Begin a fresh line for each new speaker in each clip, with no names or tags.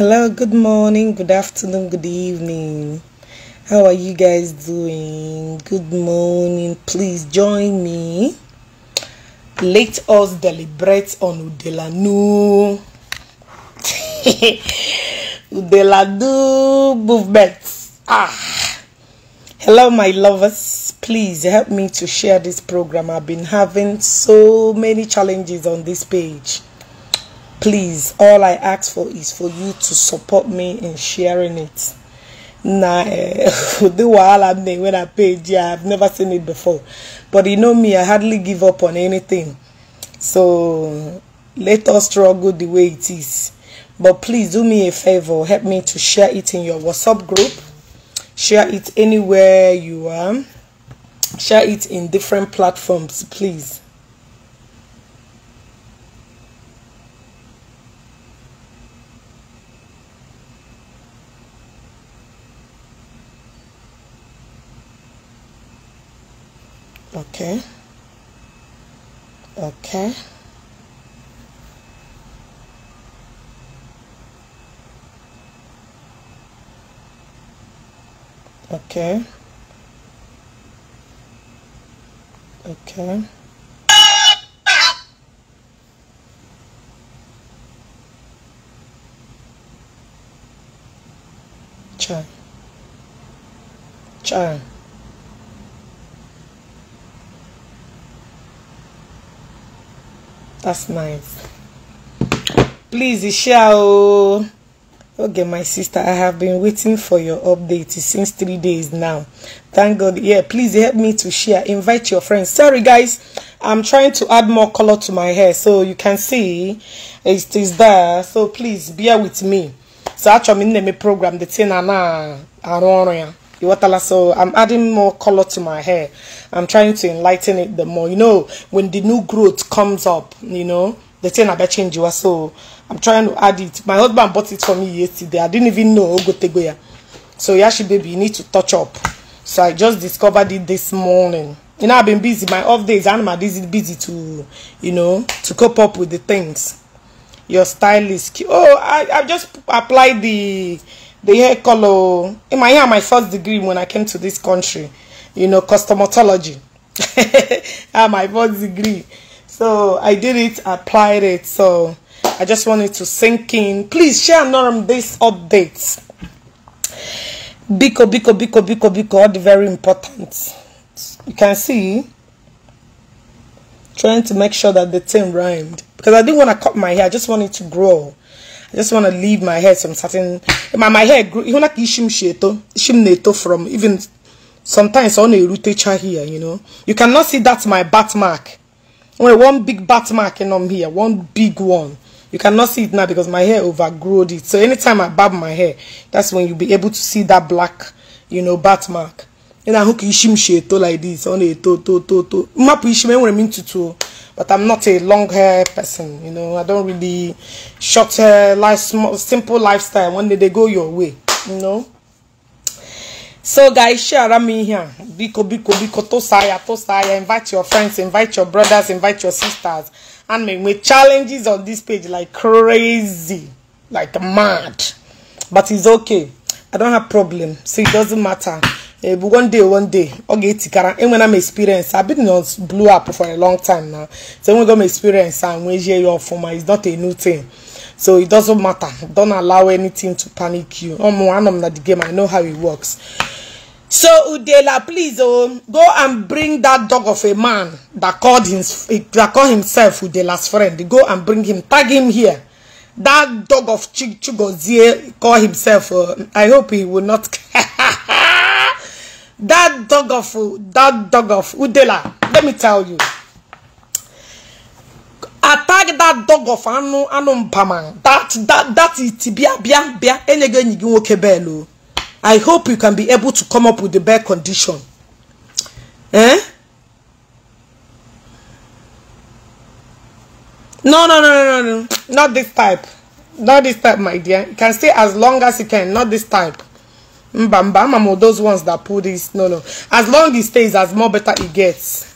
hello good morning good afternoon good evening how are you guys doing good morning please join me let us deliberate on udelanu udelanu movement ah hello my lovers please help me to share this program i've been having so many challenges on this page please all i ask for is for you to support me in sharing it now eh, the wahala there when i paid yeah i've never seen it before but you know me i hardly give up on anything so let us struggle the way it is but please do me a favor help me to share it in your whatsapp group share it anywhere you are share it in different platforms please okay okay okay okay chai chai that's nice please share, oh. okay my sister i have been waiting for your update since three days now thank god yeah please help me to share invite your friends sorry guys i'm trying to add more color to my hair so you can see it is there so please bear with me so actually in the program the thing na don't know ya Iwatala. So I'm adding more color to my hair. I'm trying to enlighten it the more. You know, when the new growth comes up, you know, the thing about change you so I'm trying to add it. My husband bought it for me yesterday. I didn't even know Ogotegoya. So Yashi baby, you need to touch up. So I just discovered it this morning. You know, I've been busy. My off days, I'm busy to, you know, to cope up with the things. Your stylist. Oh, I, I just applied the the hair color in my hair my first degree when i came to this country you know cosmetology my first degree so i did it applied it so i just wanted to sink in please share norm this update. biko biko biko biko biko all the very important you can see trying to make sure that the thing rhymed because i didn't want to cut my hair i just wanted to grow I just want to leave my hair some certain. My, my hair grew. You like ishim sheto, ishim neto from even sometimes on a rotator here. You know, you cannot see that's my bat mark. Only one big bat mark in on um here, one big one. You cannot see it now because my hair overgrowed it. So anytime I barb my hair, that's when you'll be able to see that black, you know, bat mark ị hooky ka isi like this Only to to to to to mmapụ when I mean to to, but I'm not a long hair person you know I don't really short hair life small, simple lifestyle one day they go your way you know so guys share i ihe a biko biko biko to ya tosa invite your friends invite your brothers invite your sisters and make me challenges on this page like crazy like mad but it's okay I don't have problem so it doesn't matter ebu eh, one day one day ọ ga-etikara enwena m experience I've been on blue app for a long time now so enwego m experience and nwezie ya ọfụma it's not a new thing so it doesn't matter don't allow anything to panic you ọmụ anọ m na the game I know how it works so udela please oh, go and bring that dog of a man that called, him, that called himself udela's friend go and bring him tag him here that dog of Chigozie call himself uh, I hope he will not That dog of that dog of Udela, let me tell you. Attack that dog of Anu Anu Paman. That that that it bia bia bia enyege nyigi woke belo. I hope you can be able to come up with the best condition. Eh? No, no, no, no, no, no. Not this type. Not this type, my dear. You can stay as long as you can. Not this type. mba mba ama m those ones that pull this no no as long it stays as more better it gets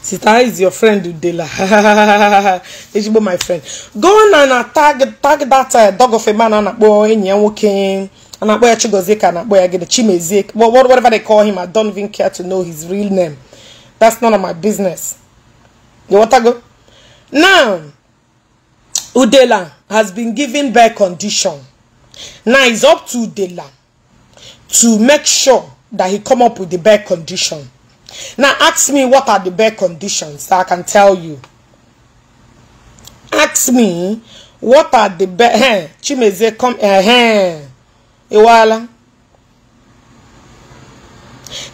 Sita is your friend Udela. Ejigbo my friend. Go on and tag tag that uh, dog of a man and akpo enyi ya nwoke and akpo ya Chigozie ka akpo ya gede Chimezie. What whatever they call him I don't even care to know his real name. That's none of my business. You want to go? Now Udela has been given back condition. Now it's up to Dela to make sure that he come up with the best condition. Now ask me what are the best conditions that I can tell you. Ask me what are the best. Eh, Chimeze come. Iwala. Eh, eh,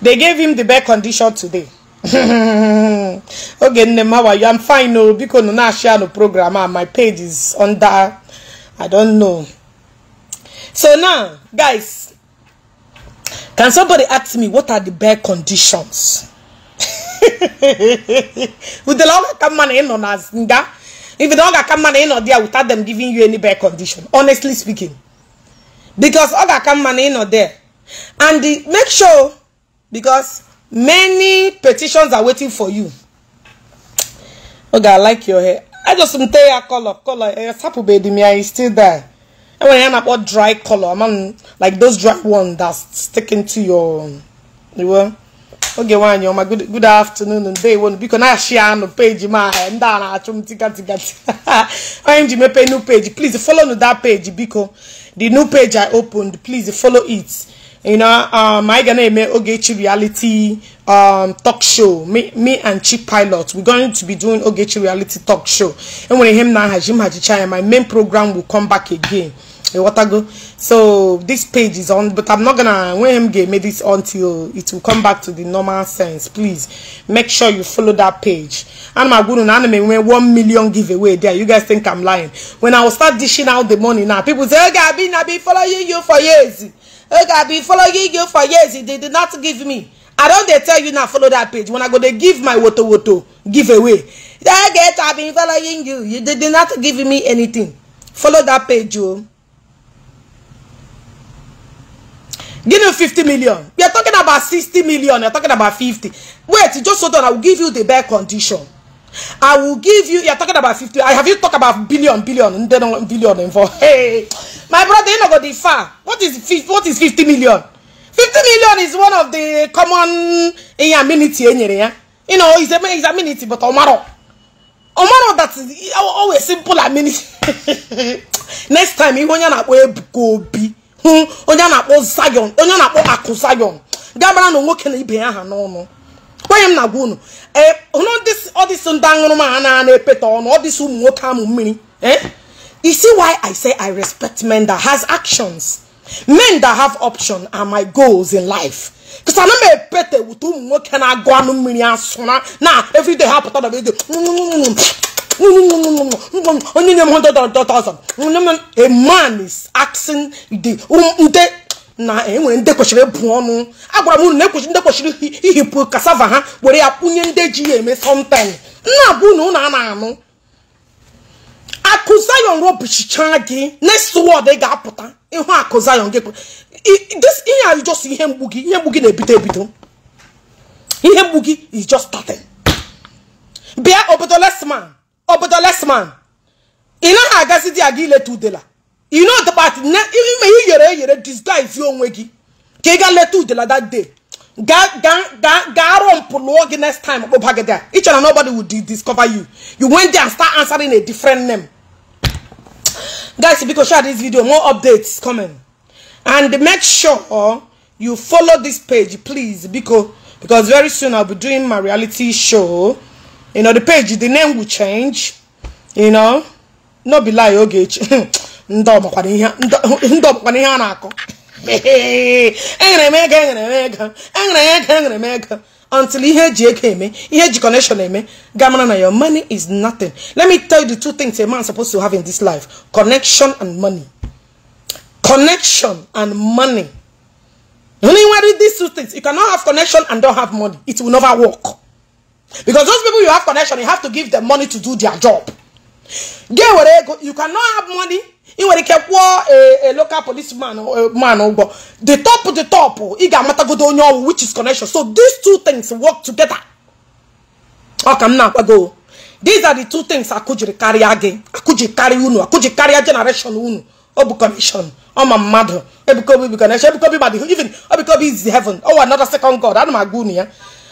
They gave him the best condition today. okay, Nnem, how you? I'm fine. No, oh, because no, now share no program. Ah, my page is under. I don't know. So now, guys, can somebody ask me what are the bare conditions? With the longer come money in on us, if the longer come money in or there without them giving you any bare condition, honestly speaking. Because other come money in or there. And the, make sure, because many petitions are waiting for you. Okay, I like your hair. I just tell you color, color. Sapubedi, me, I still there. enwere ihe na about dry color man like those dry ones that's sticking to your you know. Okay, one, you're my good afternoon One, biko na-achị anụ page. My ahụ ndị a na i m tikatikat to ji mepe new page please follow that page because the new page i opened please follow it you know um am gonna make ogechi reality um talk show me, me and chief pilot we're going to be doing ogechi reality talk show and when him now hajim hajichaya my main program will come back again Eh, watago so this page is on but i'm not gonna when game made this until it will come back to the normal sense please make sure you follow that page and my guru anime when one million giveaway there you guys think i'm lying when i will start dishing out the money now people say okay i've been i've been following you for years okay i've been following you for years they did not give me i don't. They tell you now follow that page when i go dey give my woto woto giveaway that get I've been following you you did not give me anything follow that page o. Oh. Give you 50 million. We are talking about 60 million. You're talking about 50. Wait, just hold on. I will give you the bare condition. I will give you. You're talking about 50. I have you talk about billion, billion, then billion involved. Hey, my brother, you know go the far. What is 50, what is 50 million? 50 million is one of the common in amenity. E you know, it's a it's amenity, but Omaro. Omaro, that's oh, oh, always simple amenity. Next time, you want to go be. hụ onye a na-akpọ Zion onye na-akpọ akụ Zion gabara na nwoke na ibe aha ha n'ọnụ kwenye m na gwa unu ọdịsị eh, ndị ma ha na-epeta ọnụ ọdịsị ụmụ nwoke amụ mmiri isi eh? why I say I respect men that has actions men that have option are my goals in life because ana m epete wute ụmụ nwoke na-agụ anụ mmiri asụra na everyday ha pụta dọba ego onye nye m 100,000 a man is asking the nde na enwere ndị kwesịrị bụ ọnụ agwara m unu na ekwesịrị ndị kwesịrị ihipụ kasava ha were ya kwụnye ndị ji ya eme something nna bụ unu a na-anụ akụzayon robichicha gị next word ị ga-apụta ịhụ akụzayon gị this ihe a just ihe mgbu gị ihe mgbu gị na-ebido ebido ihe mgbu gị is just starting bịa obodo lesman obodo lesman ị naghị agazi di aga ileta udela you know the part na ime ị yere eyere disguise onwe gị ka ị gaa leta udela that day gaa rụọ mpụ lụọ gị next time kpụba gị there ị chere na nobody would discover you you went there and start answering a different name guys because share this video more updates coming and make sure you follow this page please because because very soon i'll be doing my reality show you know the page the name will change you know no be lie oge ndị ọbụkwana ihe a na-akọ Hey, m ego enyere m ego enyere m ego until ihe eji ego eme ihe eji connection eme ga mara na your money is nothing let me tell you the two things a man supposed to have in this life connection and money connection and money only one with these two things you cannot have connection and don't have money it will never work because those people you have connection you have to give them money to do their job get where they go you cannot have money ị nwere ike kwụọ eh, a eh, local policeman man ụgwọ eh, oh, the top the top ị oh, ga-amatagodo onye ọwụ which is connection so these two things work together ọ ka m na-akwago these are the two things akụjiri karịa gị akụji karịa unu akụji karịa generation unu ọ bụ connection ọma mmadụ Ebuka Obi bụ connection Ebuka Obi madụ even Ebuka Obi is heaven ọwa oh, another second god ana m agwa unu ya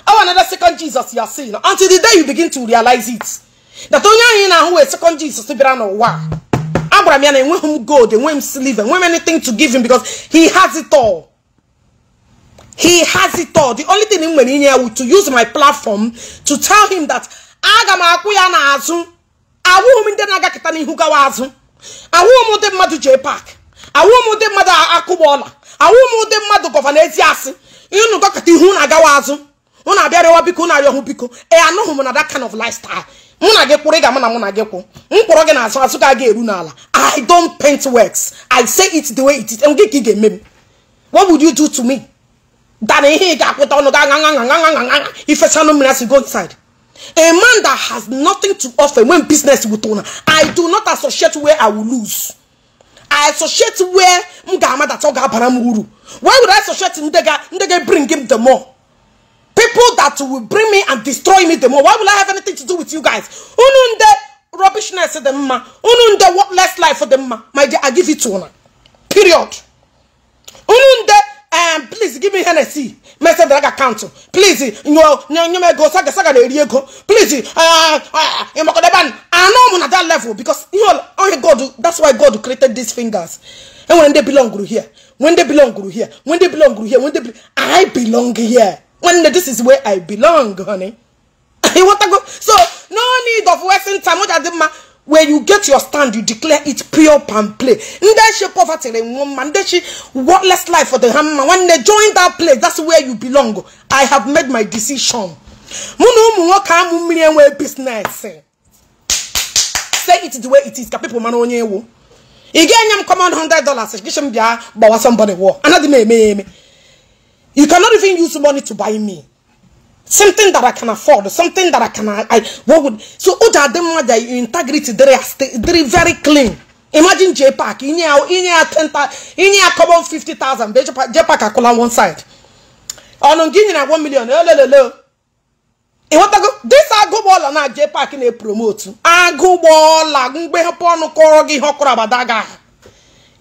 ọwa another second Jesus ya si until the day you begin to realize it that onye ahụ ị na-ahụ wee second Jesus bịara n'ụwa agwara m ya na enweghị gold enweghị m silver enweghị m anything to give him because he has it all he has it all the only thing m nwere inye ya wu to use my platform to tell him that aga m akwụ ya n'azụ awụghị m ndị na-agakịta n'ihu gawa azụ awụghị m ụdị mmadụ jee pak awụghị m ụdị mmadụ akụgba ọla awụghị m ụdị mmadụ gọva n'ezi asị ịnụ gọkịta ihu na-agawa azụ unu abịarịwa biko unu arịọhụ biko ee anụghị na that kind of lifestyle mụ na gị kwụrụ ị ga-ama na mụ na gị kwụ m kwụrọ gị n'azụ azụ ka a ga-eru n'ala i don't paint works i say it the way it is nke ka ị ga-eme m what would you do to me dana ihe ị ga-akwụta ọnụ ga gaga ifesanụ mmiri asị go inside a man that has nothing to offer when business with owner i do not associate where i will lose i associate where m ga-amadata ọ ga-abara m uru why would i associate ndị ga ndị bring him the more people that will bring me and destroy me the more. Why will I have anything to do with you guys? Ununde rubbishness the ma. Ununde worthless life for the ma. My dear, I give it to her. Period. Ununde um, please give me Hennessy. Message that I council, Please, you know, you may go saga saga de Riego. Please, uh, uh you know, I know I'm on that level because you know, only God, that's why God created these fingers. And when they belong to here, when they belong to here, when they belong to here, when they, I belong here. nwanne this is where i belong honey you want to go so no need of wasting time what adị mma where you get your stand you declare it pure and play ndị chi poverty re nwa mma ndị worthless life for the hammer. When they join that place that's where you belong i have made my decision mụ na ụmụ nwoke business say it the way it is ka people mara onye ewu ị ga-enye m command 100 dollars gịchi m bịa gbawa somebody war anaghị me me me. You cannot even use money to buy me. Something that I can afford, something that I can I what would so Uja oh, Demada integrity there are very clean. Imagine J Park, in your in your ten in your common fifty thousand, J Park are on one side. On oh, Guinea one million, hello. Eh, this agụgbọọla na J Park na-epromotu agụgbọọla mgbe hapụ ọnụ kọrọ gị ihe ọ kọrọ abada gị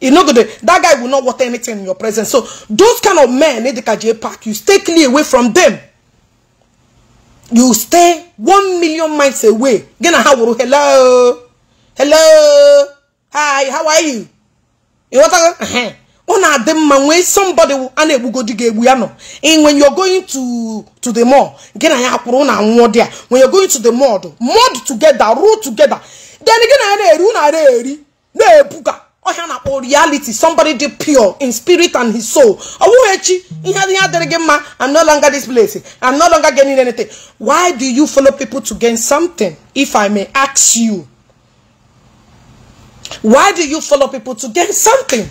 You know, that guy will not want anything in your presence. So those kind of men in the KJ Park, you stay clear away from them. You stay one million miles away. Hello. Hello. Hi, how are you? You want to uh One of them man when somebody and it will go dig And when you're going to to the mall, again I have there. When you're going to the mall, mud together, roll together. Then again I run a na ebuka ọhịa na-akpọ reality somebody dị pure in spirit and his soul ọ bụghị echi ihe ihe adịrị gị mma i'm no longer this place i'm no longer getting anything why do you follow people to gain something if i may ask you why do you follow people to gain something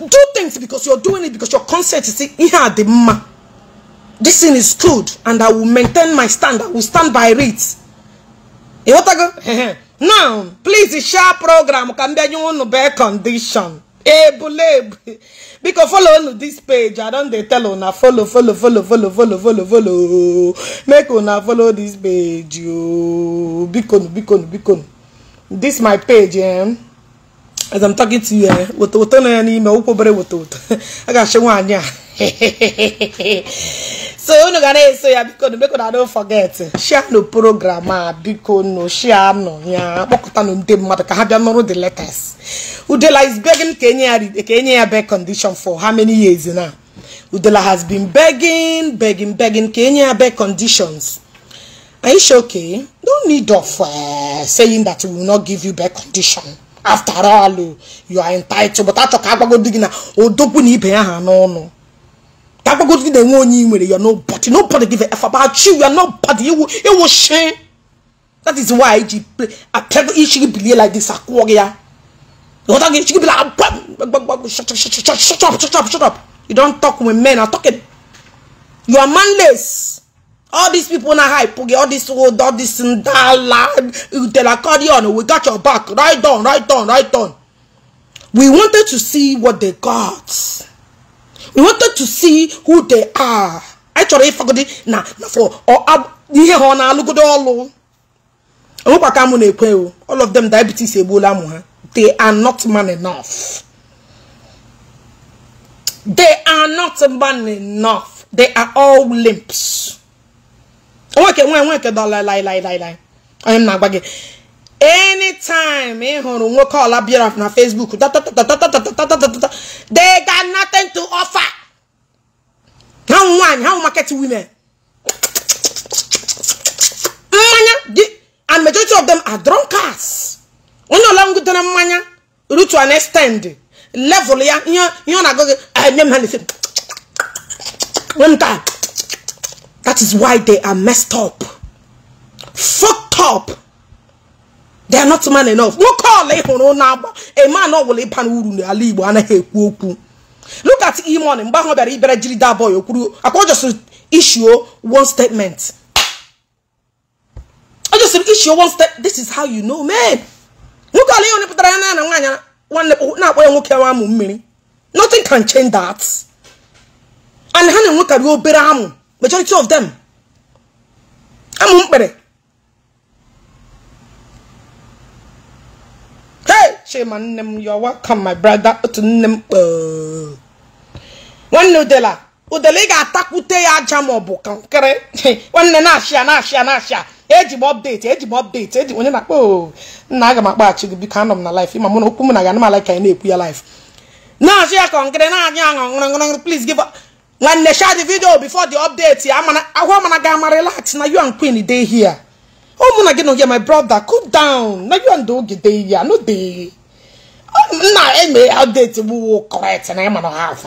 do things because you're doing it because your conscience is ihe a dị mma this thing is good and i will maintain my stand i will stand by it ịghọtago now please share program ka m bịanye unu be condition ebulebu biko folo unu this page i don dey tell una folo folo folo folo folo folo follow make una folo this page ooo biko nu biko nu biko nu this my page eh as i'm talking to you eh wotowoto nọ ya n'ime ụkwụ obere wotowoto a ga-achị nwaanyị a so unu ga na-eso ya biko nu biko na don't forget share no program a ah, biko nu share no ya kpọkọta nu ndị mmadụ ka ha bịa the letters udela is begging ka enye ya ka condition for how many years now udela has been begging begging begging ka enye ya bed conditions are okay no need of uh, saying that we will not give you bed condition after all you are entitled but achọ ka agbagodo gị na odogwu na ibe ya ha n'ọnụ that go to the one you with you're nobody nobody give a f about you you're nobody you will it will shame that is why she play a clever issue be like this aquaria you don't get she be like shut up shut up shut up shut up shut up you don't talk with men i'm talking you are manless all these people na hype all this old all this ndala utelacardion we got your back right on right on right on we wanted to see what they got he wanted to see who they are anyị chọrọ ịfagodi na na for or ah, ihe ha ọ na-alụgodo ọlụ onwekwa ka mụ na-ekwe o all of them diabetes Ebola amụ ha they are not man enough they are not man enough they are all limps onweke nwe nweke dọla lai lai lai lai onye I am not gị anytime ị hụrụ nwoke ọla bịara na Facebook they got nothing to offer ha nwaanyị ha market women mmanya and majority of them are drunkards onye ọla ngudere mmanya rutu an extend level ya ihe ọ na-agụ gị enye m ha na that is why they are messed up fucked up they are not man enough nwoke ọla ị na-agba eman ọbụla ịba n'uru n'ala igbo anaghị ekwu okwu look at imon mgbe ahụ bịara ibere jiri da boy okwuru akwa ojosiri issue one statement ojosiri issue one statement this is how you know me nwoke ọla ihe pụtara ya na nwaanyị nwanne na-akpọ ya nwoke nwa mmiri nothing can change that and ha na-enwekarị obere amụ majority of them amụ mkpere chima nne m yo welcome my brother otu nne m nwanne udela udela ị ga-atakwute ya aja ma ọ bụ kankịrị nwanne na-achịa na-achịa na-achịa eji m ọpdeti eji m ọpdeti eji onye na-akpọ nna aga m akpaghachi gị biko anọ m na laif ịma mụ na okwu m na aga anamala ka ya na-ekwu ya laif na ya kankịrị na-anya ṅụrụ plis give nwanne share the video before the update ahụ mana ga ama na you and queen dey here ụmụ gị na my brother cool down na nna eme update mu wo correct na ema no half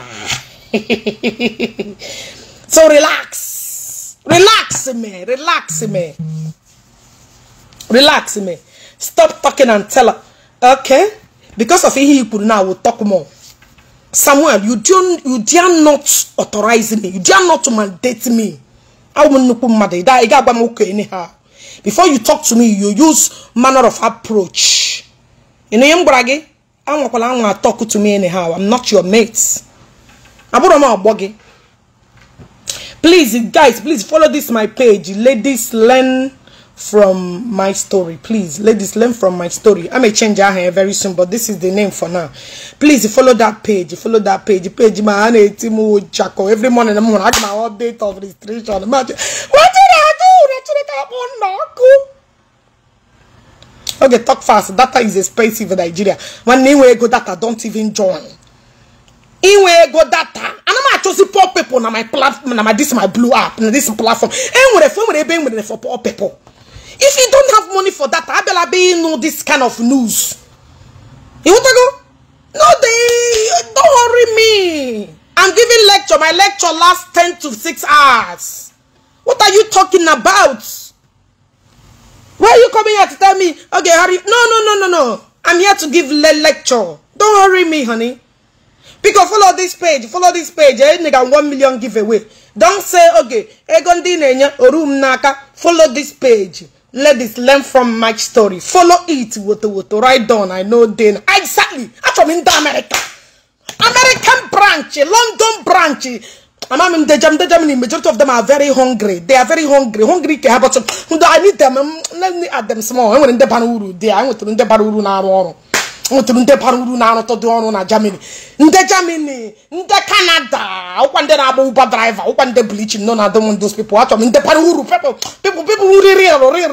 so relax relax me relax me relax me stop talking and tell her okay because of he you now will talk more Samuel, you do not you dare not authorize me. You dare not mandate me. I will not put mother. That I got okay anyhow. Before you talk to me, you use manner of approach. You know, brage. I'm not going to me anyhow i'm not your mate abụrụ m ọgbọ gị please guys please follow this my page ladies learn from my story please ladies learn from my story i may change aha here very soon but this is the name for now please follow that page follow that page page ma ana eti mu every morning i'm gonna update of restriction what did i do oh, okay talk fast data is expensive in nigeria when inwe go data don't even join inwe go data I know anama chosi poor people na my platform na my this my blue app na this platform enwere for enwere ebe enwere for poor people if you don't have money for data better be know this kind of news you want to go no they don't worry me i'm giving lecture my lecture lasts 10 to 6 hours what are you talking about Why are you coming here to tell me? Okay, hurry. No, no, no, no, no. I'm here to give le lecture. Don't hurry me, honey. Because follow this page. Follow this page. Eh, nigga, one million giveaway. Don't say, okay, egondi nenya orum naka. Follow this page. Let this learn from my story. Follow it. Woto woto. Right down. I know then. Exactly. I'm from India, America. American branch. London branch. Mama, I'm jam, the jam, the majority of them are very hungry. They are very hungry. Hungry can help us. I need them. Mm, let me add them small. I'm going to Panuru. They are going to the Panuru now. nwetụrụ ndị na-arụtụ dị ọrụ na Germany ndị Germany ndị Canada ụkwa na-agba ụba draiva ụkwa ndị bleaching na dom those people achọrọ m ndị bara people people uri real real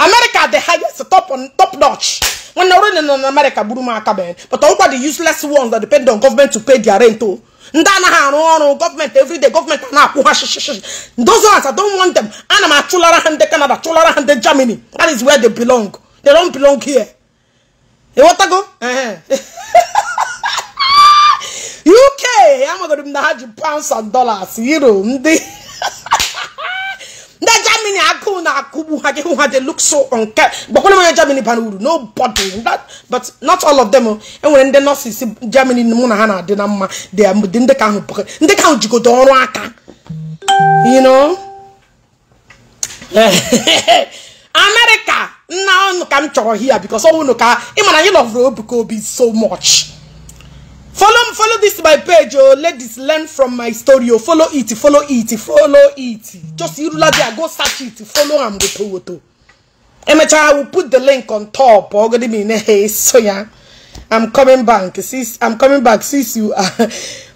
America the highest top on top notch When ọrụ nọ in America gburu m but all the useless ones that depend on government to pay their rent o ndị anaghị arụ ọrụ gọọmenti everyday gọọmenti a na-akwụ ha shishishii those ones I don't want them ana m achụlara ha ndị Canada chụlara ha ndị Germany that is where they belong they don't belong here ịghọtago UK amagoro m na ha ji pounds and dollars euro ndị ndị Germany agụ na-akụgbu ha gị hụ ha look so nke gbakwana Germany bara uru nobody but not all of them enwere ndị nurses Germany na ha na-adị na mma ndị ahụ ndị ka ahụ jigodo ọrụ aka you know America nna ọnụ ka m chọrọ because ọ nwụnụ ka ị mara anyị lovere so much follow follow this my page oh ladies learn from my story oh follow it follow it follow it just irulade go search it follow am woto woto emechaa i will put the link on top ogodi mi ne hey so ya i'm coming back since i'm coming back since you are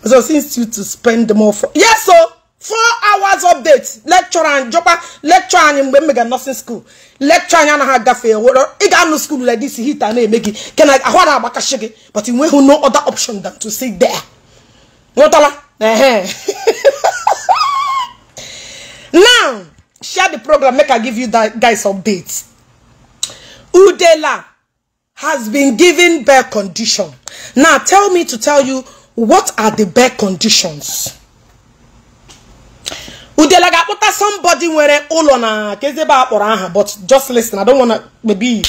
so since you to spend more for yes yeah, oh. so four hours update lecture and jọkwa lecture anyị mgbe m mega nursing school lecture anyị anaghị agafe were ị ga-anụ school like this hita na-eme gị ke na ahụ na agbakashi gị but ị nweghị no other option than to sit there nwetala now share the program make i give you that guys update udela has been given bare condition now tell me to tell you what are the bare conditions udela ga-akpụta somebody nwere ụlọ na kezebe akpọrọ aha but just listen I don't wanna maybe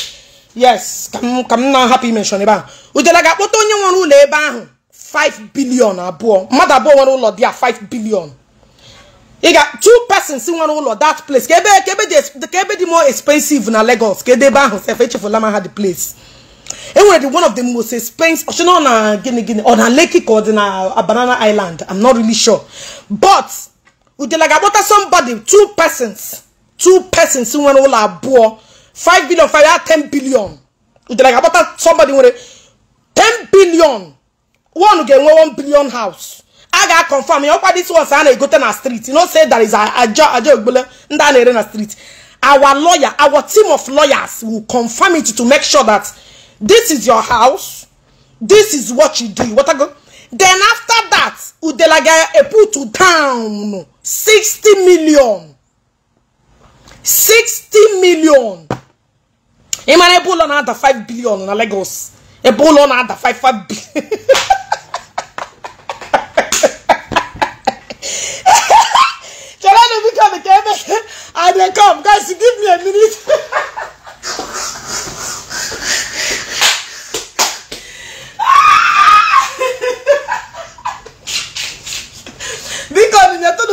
yes ka m na-ahapụ imenshon ebe ahụ udela ga-akpụta onye nwere ụlọ ebe ahụ 5 billion abụọ mmadụ abụọ nwere ụlọ dị ya 5 billion ị ga two persons nwere ụlọ that place ka ebe ka ebe dị more expensive na Lagos ka ebe ahụ sef echefula ma ha the place enwere the one of the most expensive ọchịna ọ na gịnị gịnị ọ na Lekki ka ọ dị na Banana Island I'm not really sure but udelagabota somebody two persons two persons nwere ụlọ abụọ five billion five ya 10 billion udelagabota somebody nwere ten billion one ga-enwe 1 billion house a ga-akọnfam ya ọkwa dis ones a na-egote na street no say there is aja aja ogbele ndị a na-ere na street our lawyer our team of lawyers will confirm it to make sure that this is your house this is what you do what I go then after that udelaga eputu down sixty million sixty million emmanuel ebo lọ na-ada five billion na Lagos ebo lọ na-ada five five billion. Jolani, we come again. I dey come, guys. Give me a minute.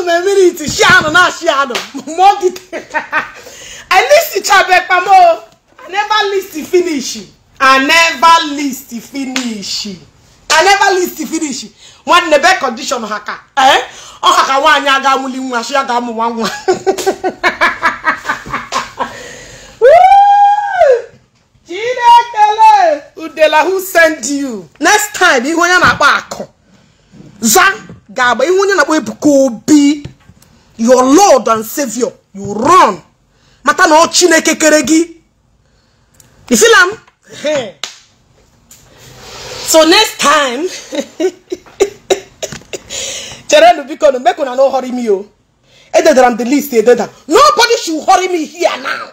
no na minute ṣe àná náà ṣe àná more detail i list chabẹ pamọ i never list finish i never list finish i never list finish nwanne be condition Haka. ka eh ọ ha ka nwaanyị aga amụli nwa shi aga amụ nwa nwa udela who send you next time you onye na-akpa akụ za ga-agba ihu onye na-akpọ Ebuka Obi your lord and savior you run mata na ọ chineke kere gị ifilam so next time cherenụ biko na mekụna na hurry me o oh. ededara m the list ededa nobody should hurry me here now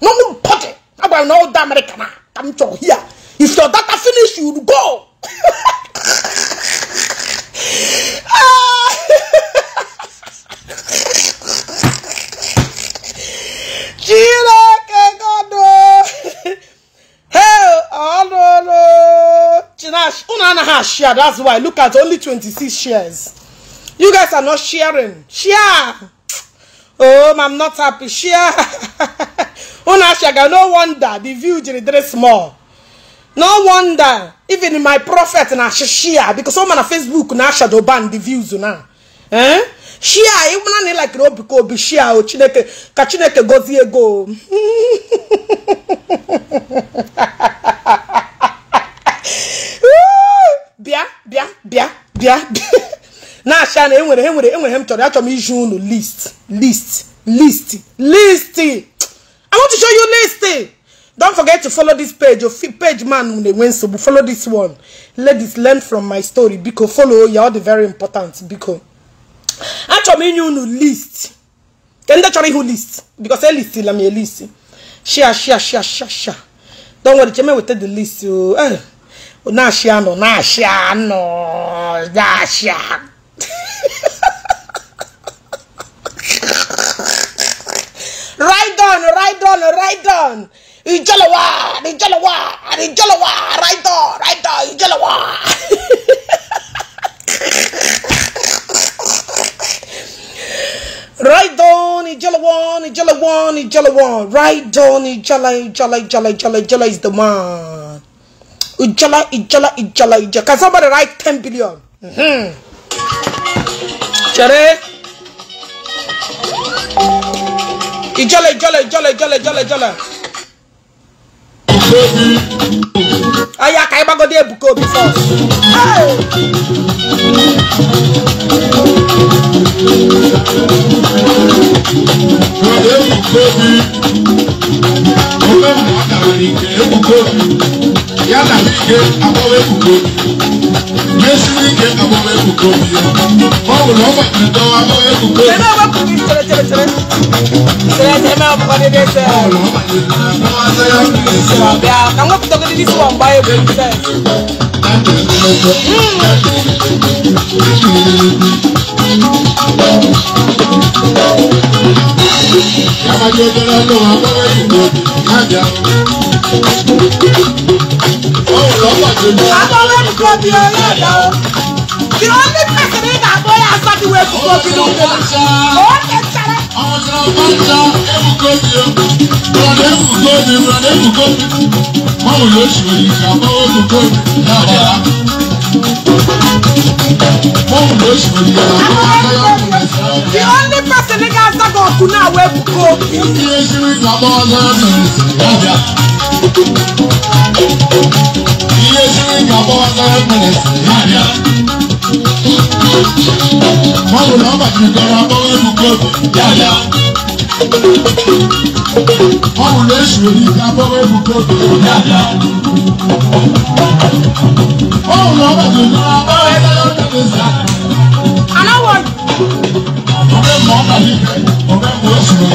nobody agwara m na ọda amerịka na ka m chọrọ here if your data finish you go hello, hello. has share. That's why. Look at only 26 shares. You guys are not sharing. Share. Oh, I'm not happy. Share. Una No wonder the view is very small. no wonder even my prophet na shia because ọ ma na facebook na shadow ban the views na eh share ịmụna na ịlakiri obi ka obi share o oh, chineke ka chineke gozie ego bịa bịa bịa bịa na-acha na enwere enwere enwere m chọrọ achọrọ m iji unu list list list list i want to show you list Don't forget to follow this page. Your page man so, Follow this one. Ladies, learn from my story. Because follow you all the very important. Because actually you know list. Can that who list? Because I list I'm a list. Share, share, share, share, share. Don't worry, Chema will take the list. You eh. na share no, na share no, na share. Right on, right on, right on. Ijalawa, Ijalawa, Ijalawa, right on, right on, Ijalawa. right on, Ijalawa, Ijalawa, Ijalawa, right on, Ijala, Ijala, Ijala, Ijala, Ijala is the man. Ijala, Ijala, Ijala, Ijala. Can somebody write 10 billion? Mm-hmm. Chere. Ijala, Ijala, Ijala, Ijala, Ijala, Ijala. Obi. Oh yeah, can you go there Ebuka Obi first? Hey.
Ebuka Obi owe ụmụ ọgaranya nke ebubo obi
ya na ike agbawa ebubo obi mesiri ike agbawa ebubo obi ya ọ bụrụ ọgba ndọwa agbawa ebubo obi ọlụ ọgba ndọwa agbawa ebubo obi Kábàjẹ́ dára lọ àwọn ìbò kájà. Báwo lọ pàdé lọ? Abọ́lá ní kò bí
àwọn tí wọn bá ń ta ebùkọ́
di o bọ̀dé
ebùkọ́ di bọ̀dé ebùkọ́
mọ̀wù yóò ṣe òyìnbó àbọ̀ ebùkọ́ yàrá mọ̀wù yóò ṣe òyìnbó àbọ̀ ebùkọ́. the only person ní ká sábà ọkùn náà wọ ebùkọ́. ìdí eṣirí làbọ̀ ọ̀dọ́ ọ̀dọ́ ìdí eṣirí làbọ̀ ọ̀dọ́ ọ̀dọ́ Báwo la bá ti gara bọ́wọ́ ẹnu kẹ́kù yáyá?
Báwo lè ṣe ìgbà bọ́wọ́ ẹnu kẹ́kù yáyá?
Báwo la bá ti gara bọ́wọ́ ẹnu kẹ́kù yáyá? ọmọ yìí ọmọ ẹ̀mú oṣù rẹ̀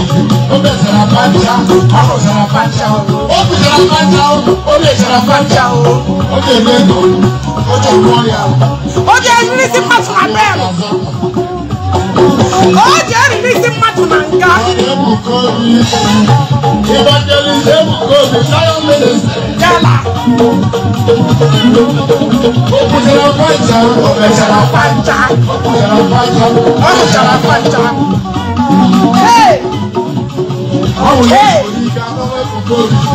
ó bẹ̀ sara pàǹtà ọmọ sara pàǹtà ó bẹ̀ sara pàǹtà ó bẹ̀ sara pàǹtà ó bẹ̀ ẹ̀mú ẹ̀dọ̀ ó jẹ́ ìlú ọ̀rẹ́ àwọn. ó jẹ́ ìrírí sí pàtó abẹ́rẹ́ ó jẹ́ ìrírí sí pàtó nàǹkà. ìbàdàn ìṣẹ́ bùkọ́ mi sáyọ̀ mẹ́lẹ̀ sẹ́ jala. Musala pancha, musala pancha, musala pancha, musala pancha.
Hey! Hey!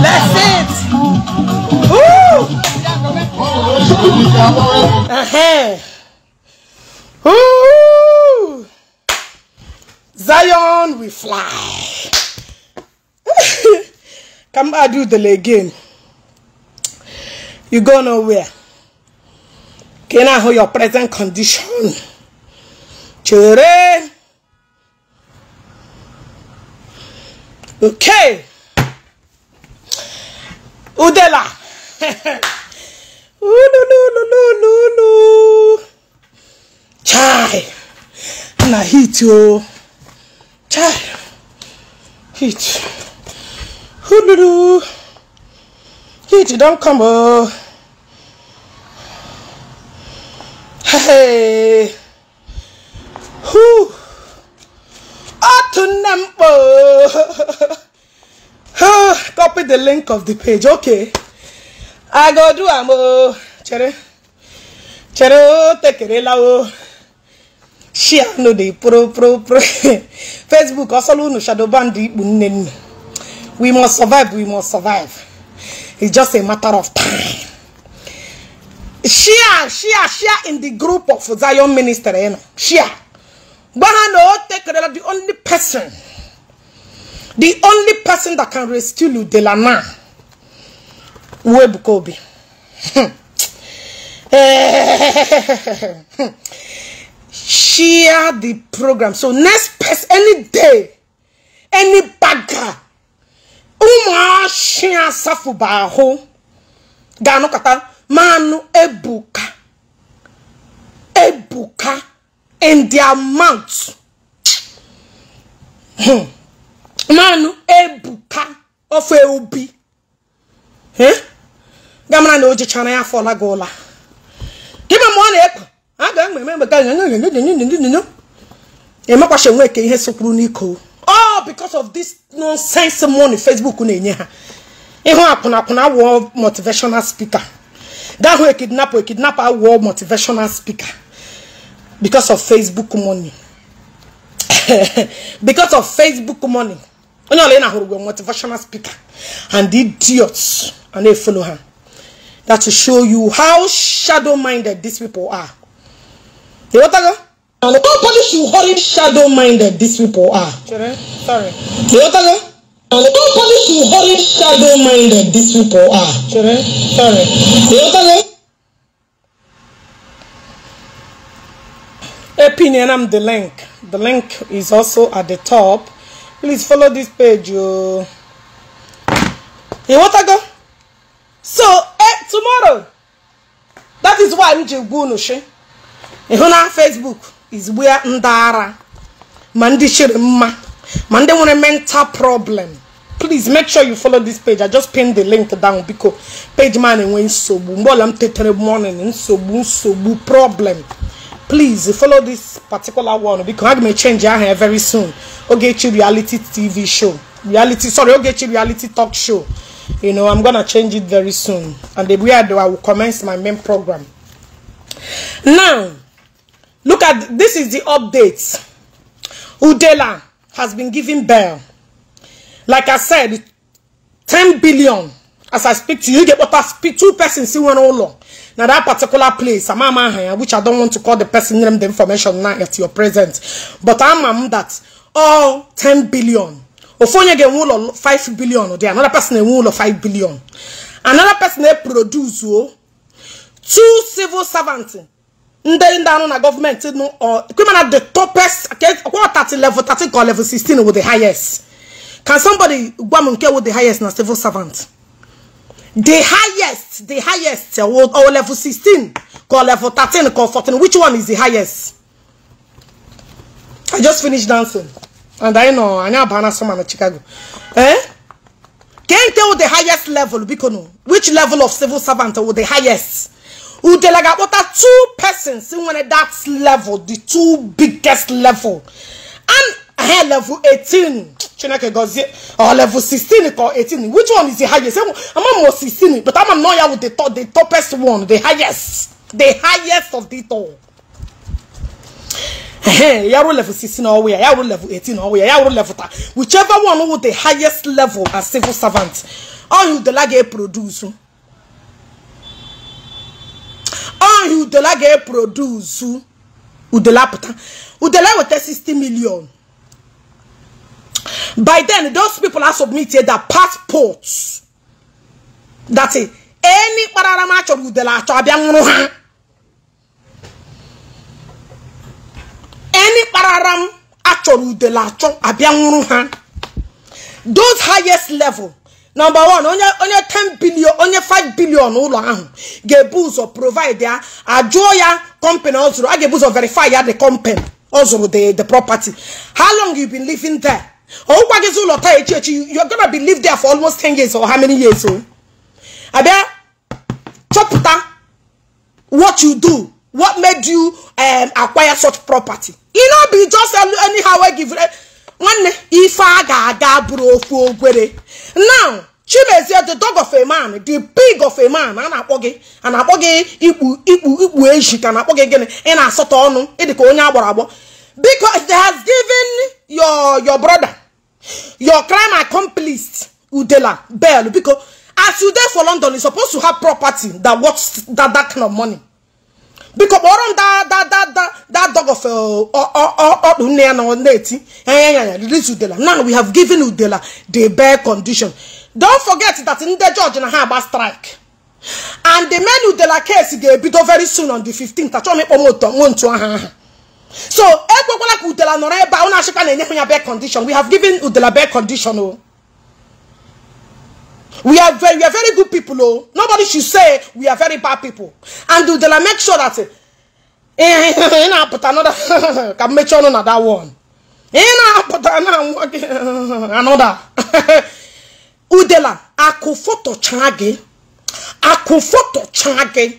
That's it! Woo! Uh-huh. Woo! Zion, we fly. Come, I do the leg again you go nowhere Can I na your present condition chere okay udela ulululululu chai na hit you. chai hit ululu heat don't come oh! hey otu to m kpo copy the link of the page okay i go do am ooo oh. chere chere oh, take it, ooo oh. share no dey pro pro pro facebook ọsọlụ no shadow band ikpu we must survive we must survive It's just a matter of time. Share, share, share in the group of Zion Minister. You know, share. The only person, the only person that can rescue Ludelana, Web Kobe. Hmm. share the program. So next person, any day, any bagger ụmụ ụmụashi asafụba ahụ ga-anọkọta manụ ebuka ebuka in the amount manụ ebuka ofe obi gamara na o jichara ya afọ laga ụla dịba ma ọ na-ekwe a ga-ememe emeka emekwasị nwoke ihe sokwuru n'iko all because of this nonsense money facebook na-enye ha ịhụ a wụọ motivational speaker kidnap, ekidnapụ ekidnapụ world motivational speaker because of facebook money because of facebook money onye ọla ị na-ahụrụ motivational speaker and the idiots and they follow her. that to show you how shadow minded these people are ịghọtago Publish should horrid shadow minded these people are. Children, sorry. Don't polish should horrid shadow minded these people are. Children, sorry. Opinion, I'm the link. The link is also at the top. Please follow this page. You. go? So, eh, tomorrow. That is why I'm Jigbunushin. You know, Facebook. is where ndị mandi ma mandi one a mental problem please make sure you follow this page i just pinned the link down because page man enwe nsogbu mgbe ọla m tetere morning nsogbu nsogbu problem please follow this particular one because i may change your hair very soon to reality tv show reality sorry to reality talk show you know i'm gonna change it very soon and the way i do i will commence my main program now Look at this is the update. Udela has been given bail. Like I said, 10 billion. As I speak to you, get what I speak two persons see one all long. Now that particular place, I'm a which I don't want to call the person name the information now at your present. But I'm that all 10 billion. Ofonye get one of 5 billion. There another person a one of 5 billion. Another person they produce oh, two civil servants ndị ndị anụ na gọọmenti nụ criminal the topest kwa 30 level 30 ka level sixteen? with the highest can somebody gwa m nke with the highest na civil servant the highest the highest or level sixteen, ka level thirteen, ka fourteen. which one is the highest i just finished dancing and i know anyị abana soma na chicago eh can tell the highest level biko no which level of civil servant with the highest Udelaga are two persons in one at that level, the two biggest level. And her level 18. Chineke gozie or level 16 or 18. Which one is the highest? I'm almost 16, but I'm not here with the top the topest one, the highest. The highest of the all. Yaro level 16 or we are level 18 or we are level ta. Whichever one with the highest level as civil servant. All you the lag produce. ọhịa udela ga-eprodusu udela pụta udela weta 60 million by then those people are submitted their passports that is any kparara m achọrọ udela achọ abịa nwụrụ ha any kpararam m achọrọ udela achọ abịa nwụrụ ha those highest level nọmba wan onye onye 10 bilion onye 5 bilion ụlọ ahụ ga-ebu ụzọ provide ya ajụọ ya company ọ zụrụ a ga-ebu ụzọ verify ya the company ọ zụrụ the the property how long you been living there ọwụkwa gịzi ụlọ taa echi echi you gonna be live there for almost 10 years or how many years o oh? abịa chọpụta what you do what made you um, acquire such property you no be just anyhow wey give eh, nwanne ife a ga-aga bụrụ okwu ogwere now chimezie the dog of a man the pig of a man a na-akpọ gị a na-akpọ gị ikpu ikpu ikpu eji ka na-akpọ gị gịnị ị na-asọtọ ọnụ ịdị ka onye agbọrọ agbọ because they has given your your brother your crime accomplice udela bell biko as you dey for london you suppose to have property that worth that that kind of money biko kpọrọ m that that that that dog of ọdụ nne ya na ọ na-eti ya ya ya release udela now we have given udela the bare condition don't forget that in the George na have a strike and the menu de la case ga-ebido very soon on the 15th achọọ m ịkpọ m aha aha so ekwekwala ka udela nọrọ ebe a ụna achịkwa na-enye ya bed condition we have given udela bad condition o oh. we are very, we are very good people Oh, nobody should say we are very bad people and udela make sure that ị na-apụta another can make sure na that one ị na-apụta another nwa gị udela akụfotochaa chage, akụfotochaa gị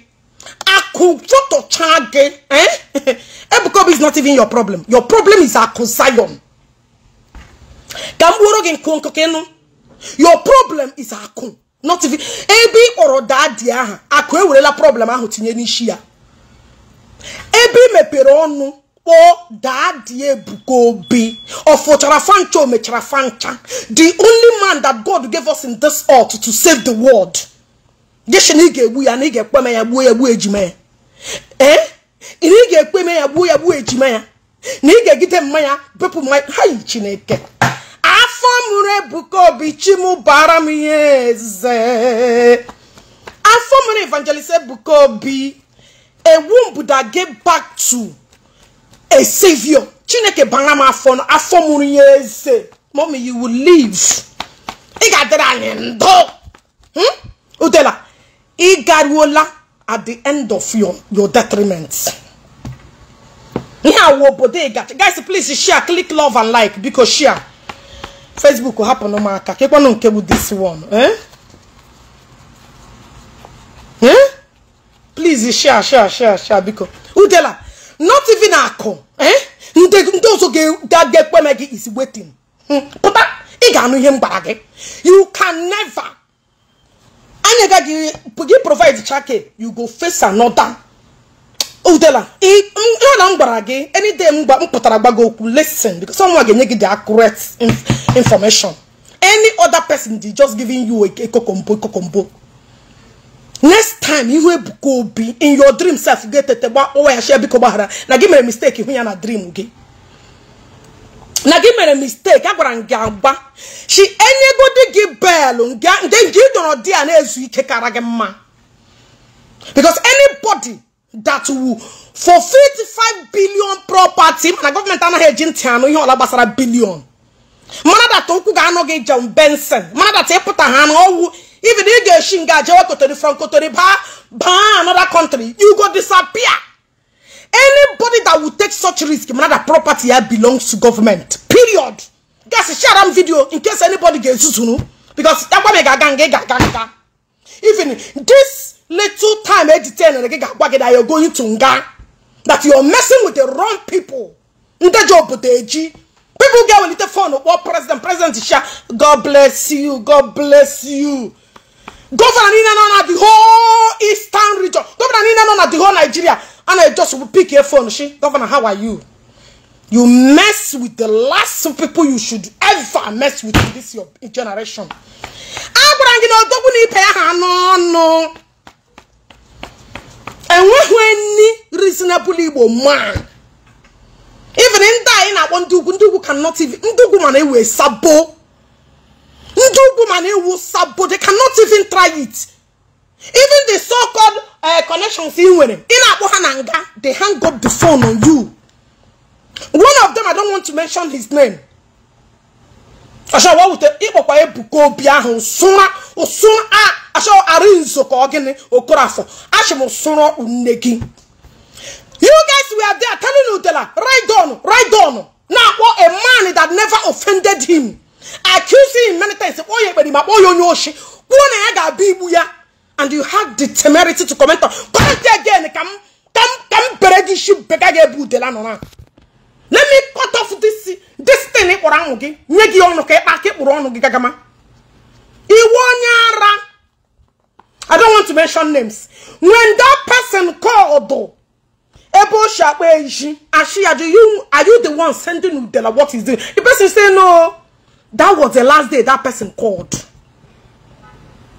akụfotochaa gị eh? Ebuka Obi is not even your problem your problem is akụ Zion ka m gbuoro gị your problem is akụ not even Ebi ị kpọrọ daa dị aha akụ ewerela problem ahụ tinye n'isi ya mepere ọnụ kpọọ daadị Ebuka Obi ọfụchara fancha o mechara fancha the only man that God gave us in this earth to save the world geshin ị ga-egbu ya na ị ga-ekpeme ekpe ya gbuo ya gbuo ejima ya ee eh? na ị ga-ekpeme ya gbuo ya gbuo ejima ya na ị ga-egide mmanya bepụ mmanya ha yi Chineke afọ mụrụ Ebuka Obi chimụbara m ihe eze afọ mụrụ evangelist Ebuka Obi ewu mbụ da get back to a savior chineke bara m afọ afọ mụrụ ya eze mommy you will live ị ga-adịrị anyị ndụ hmm? udela ị garuola at the end of your your detriment ihe awụ obodo ị gacha guys please share click love and like biko share facebook hapụ n'ụmụaka aka kekwanụ nke bụ this one eh eh please share share share share biko udela not even akọ ndị ọzọ ga-aga ekpeme gị is waiting hmm. pụta ị ga-anụ ihe m gwara gị you can never anya ga gị gị provide chake you go face another udela ihe na m gwara gị anyday m pụtara gba gị okwu listen because someone ga-enye gị the accurate information any other person dey just giving you a kokombo kokombo next time ihu ebuka obi in your dream self ga-etete gba ụwa ya shie biko gbaghara na gị mere mistake ihu ya na dream gị na gị mere mistake agwara m gị agba chi enyegodi gị belụ nde nge ịdọrọ di a na-ezu ike kara gị mma because anybody that will for 55 billion property mana gọọmenti anaghị eji ntị anụ ihe ọla gbasara bilion mana data okwu ga-anọ gị jon benson mana data ịpụta ha ọwụ even if you shin gajewa kotori from kotori ba ba another country you go disappear anybody that will take such risk another property here belongs to government period guys share am video in case anybody gets zuzunu because even this little time editing eh, eh, and you're going to nga that you're messing with the wrong people people get a little phone oh, what president president god bless you god bless you Governor, niile nọ na the whole eastern region Governor, niile nọ na the whole nigeria And I just pick your phone, she. Governor, how are you you mess with the last people you should ever mess with in this your generation a gwara gị na odogwu na ibe ya ha n'ọnụ enweghị reasonable igbo man even in anyị na-akpọ ndị ugwu ndị ugwu cannot even ndị ugwu mana ewe sabo Ndị ugwu mana e iwu they cannot even try it. Even the so-called uh, connections ị nwere ị na they hang up the phone on you. One of them I don't want to mention his name. Ọchọwa wute ịkpọkwa Ebuka Obi ahụ nsụra ụsụra a achọ Arinzo ka ọ gịnị Okorafọ achị m sụrọ nne gị. You guys were there telling Udela, right on, right on. Now, what a man that never offended him. accusing him many times kpọọ ya ekperima kpọọ ya onye oshi kwuo na ya ga-abịa igbu ya and you had the temerity to comment on comment again ka m ka m ka m bere gị isi bega gị ebe udela nọ na let me cut off this this thing ị kpọrọ anwụ gị nye gị ọnụ ka ịkpa aka ịkpụrụ ọnụ gị gagama iwe onye ara I don't want to mention names when that person called ebe o shi akpa eji ashi ya you are you the one sending udela what is the the person say no That was the last day that person called.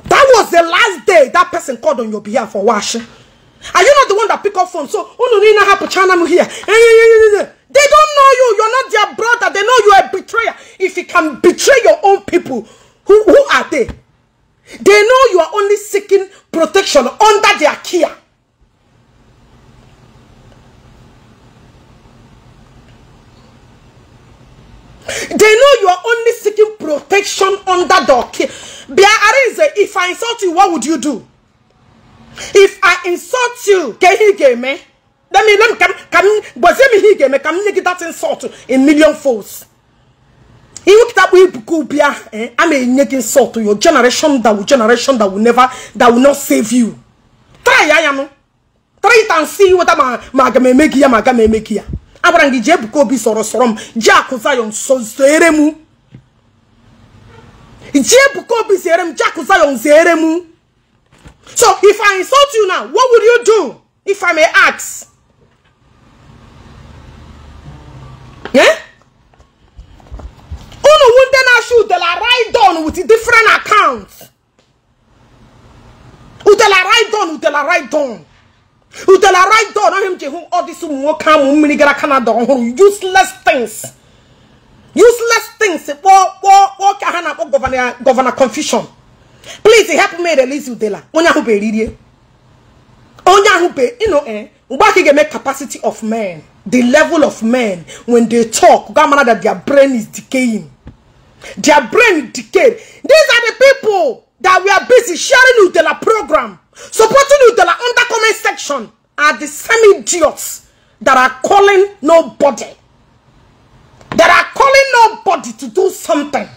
That was the last day that person called on your behalf for wash. Are you not the one that pick up phone? So, oh, here. They don't know you. You're not their brother. They know you're a betrayer. If you can betray your own people, who, who are they? They know you are only seeking protection under their care. They know you are only seeking protection under the okay. If I insult you, what would you do? If I insult you, can he get me? Let me let me come come but me he get me come make that insult in million folds. Iwu kitabu ibuku bia eh am a enyege insult to your generation that will generation that will never that will not save you. Try I am. Try it and see what I'm. ga me make ya ma ga me make you. abarangi je buka obi sọrọ sọrọ m je akụ zayon zere m je buka obi zere m je akụ zayon zere m so if i insult you now what would you do if i may ask yeah? unu wunde na shoot de la write down with different account? udela write down udela write down a right door na him ji all ọ dịsị come nwoke amụ mmiri Canada ọhụrụ useless things useless things kpọọ kpọọ kpọọ ka ha governor? Governor confusion please help me release udela who be bụ eririe who be? You know eh mgbe aka ga capacity of men the level of men when they talk ga that their brain is decaying their brain decayed these are the people that we are busy sharing udela program Supporting you that are under comment section are the same idiots that are calling nobody. That are calling nobody to do something.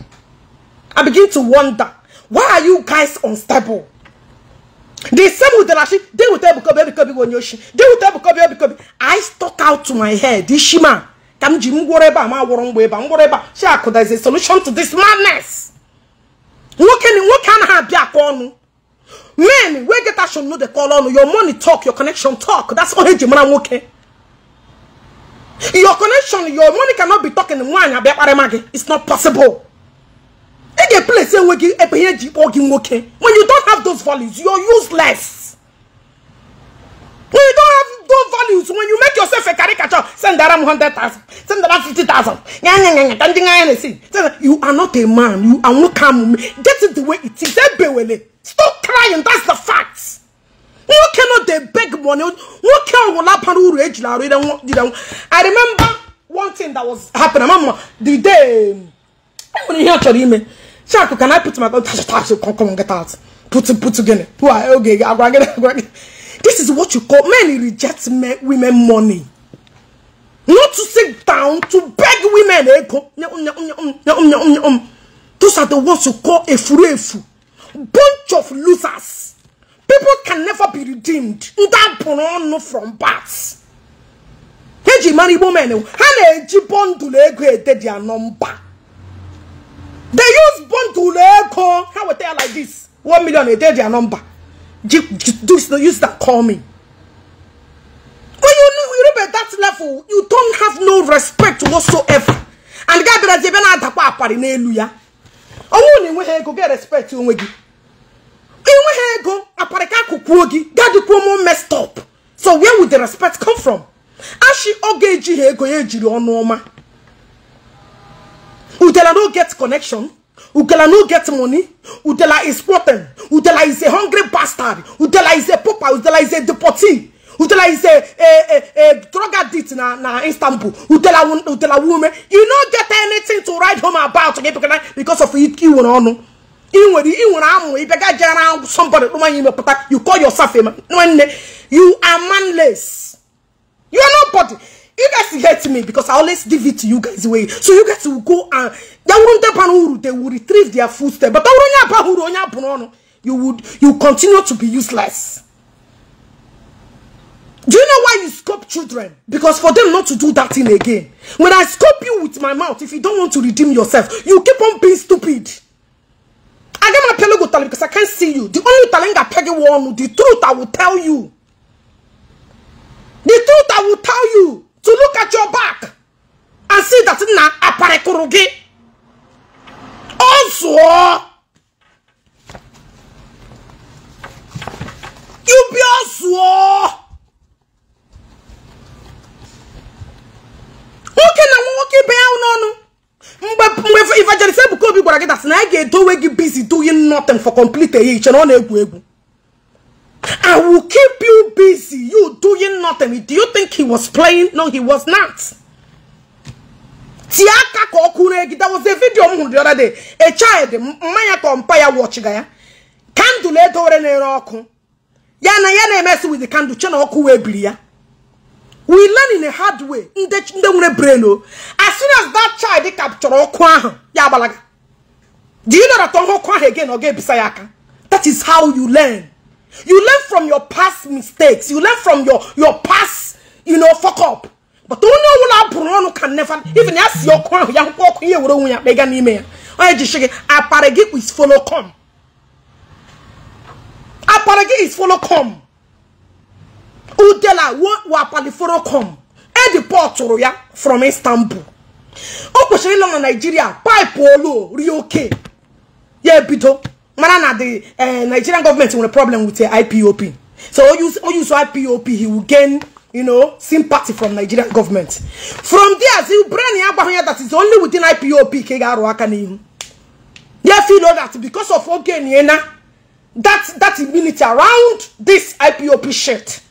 I begin to wonder, why are you guys unstable? The same with the Rashi, they will tell Bukobi, Bukobi, Wonyoshi. They will tell Bukobi, Bukobi. I stuck out to my head, Ishima. Kamji mgoreba, ma worongweba, mgoreba. She akuda is a solution to this madness. can ni can anaghị be a ọnụ men wey get action no dey call on your money talk your connection talk that's all eji mara okay. your connection your money cannot be talking nwaanyị abịa kparịma gị it's not possible ị e ga-eplesi enwe gị ebe ihe eji kpọọ gị when you don't have those values you're useless when you don't have don't values when you make yourself a caricature. Send that 100,000. Send that 50,000. You are not a man. You are not a man. Get it the way it is. Stop crying. That's the facts. You cannot they beg money. What can will happen? I remember one thing that was happening. Mama, the day. I'm going hear your email. Shaku, can I put my gun? Come on, get out. Put it, put it again. Okay, I'm going get it. This is what you call men reject men, women money. Not to sit down to beg women. Those are the ones you call a fool, Bunch of losers. People can never be redeemed. Ndapono from bats. Eji mari women. Hana eji bundle ego ede their number. They use bundle ego. How we tell like this? One million ede their number do this, no use that, call me. When you, you reach that level, you don't have no respect whatsoever. And God guy be like, "Jebe na adakwa apari na elu ya." Owo ni nwe ego get respect onwe gi. Inwe ego apari ka kukuo gi. Daddy promo messed up. So where would the respect come from? Ashi oge eji ego ye jiri onu oma. Udela no get connection. Udela no get money. Udela is rotten. Udela is a hungry bastard. Udela is a pooper. Udela is a deportee. Udela is a, a, a, a drug addict na, na Istanbul. Udela, Udela woman. You don't get anything to write home about because of it. You know, no. you call yourself a man. You are manless. You are nobody you guys hate me because I always give it to you guys away. So you guys will go and they won't tapan they will retrieve their footsteps. But you would you continue to be useless. Do you know why you scope children? Because for them not to do that thing again. When I scope you with my mouth, if you don't want to redeem yourself, you keep on being stupid. I get my pelugo talent because I can't see you. The only talent I peg one, the truth I will tell you. The truth I will tell you. to look at your back and see that na aparekuru gị ọ zụọ ubi ọ zụọ nwoke na nwa nwoke ibe ya n'ọnụ mgbe mgbe evangelist ebuka obi gwara gị dasị na anyị ga-edowe gị busy doing nothing for complete eyi iche na ọ na-egwu egwu I will keep you busy, you doing nothing. Do you think he was playing? No, he was not. Tiaka Kokuregi, that was a video the other day. A child, Maya Kompaya watching ya. Candle let over an Roku. Yana Yana mess with the candle, Chanoku Ebria. We learn in a hard way. Oh. As soon as that child captured Okwaha, Yabalaga. Do you know that Okwaha again or Gebisayaka? That is how you learn. You learn from your past mistakes. You learn from your, your past, you know, fuck up. But don't know what Bruno can never even ask your crown. Young walk here with a mega email. I just shake it. Aparegi is follow come. Aparegi is follow come. Udela wo apali follow come. Edi port from Istanbul. O kwesịrị Nigeria, pipe olu Rio K. Yeah, ebido. Manana, the uh, Nigerian government will a problem with the IPOP. So all use all IPOP, he will gain you know sympathy from Nigerian government. From there, the brain that is only within IPOP Kegaru Akani. They feel that because of Ogeniena, that that immunity around this IPOP shit,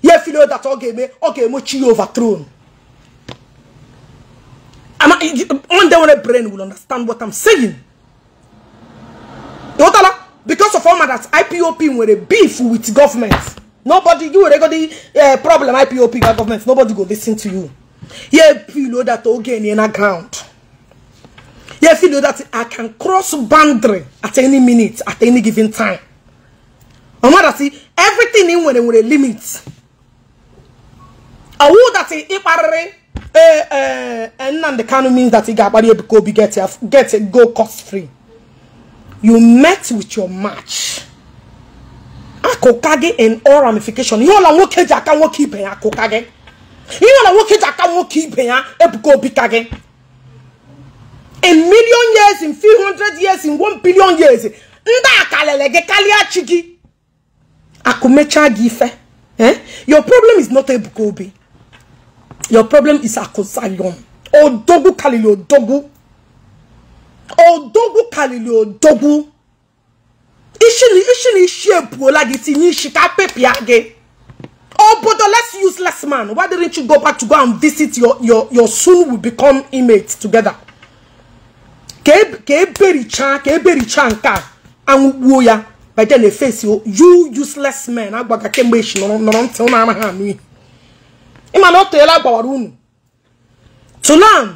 you feel that Ogeme Ogeme chi overthrown. And I, one day when a brain will understand what I'm saying. ịghọtala because of ọma that we're a beef with government nobody you were godi uh, eh, problem IPOP ga government nobody go listen to you you know that oge ni na ground you know that I can cross boundary at any minute at any given time ọma that everything in nwere a limit ọwụ that ịkparịrị ee ee Nnamdi Kanu means that ị ga-akparị Ebuka Obi get go cost free you met with your match akokage and all ramification ihe ọla nwoke ji aka nwoke ibe ya akokage ihe ọla nwoke ji aka nwoke ibe ya ebuka obi ka gị in million years in few hundred years in one billion years ndị a Kalia Chigi. karịa chi gị akụmechaa gị eh? your problem is not ebuka obi your problem is akosayon dogu kalili odogwu odogwu karịrị odogwu ishiri ishi ebuola gị tinye ishi ka pepịa gị obodo let's use less man why didn't you go back to go and visit your your your soon will become emates together ka eberichaa ka eberichaa nke a anwụgbuo ya by then face you useless men agbaga kemgbe echi nọrọ ntị ụnụ amaghị anụ ihe ịma na o teela agbawara unu to learn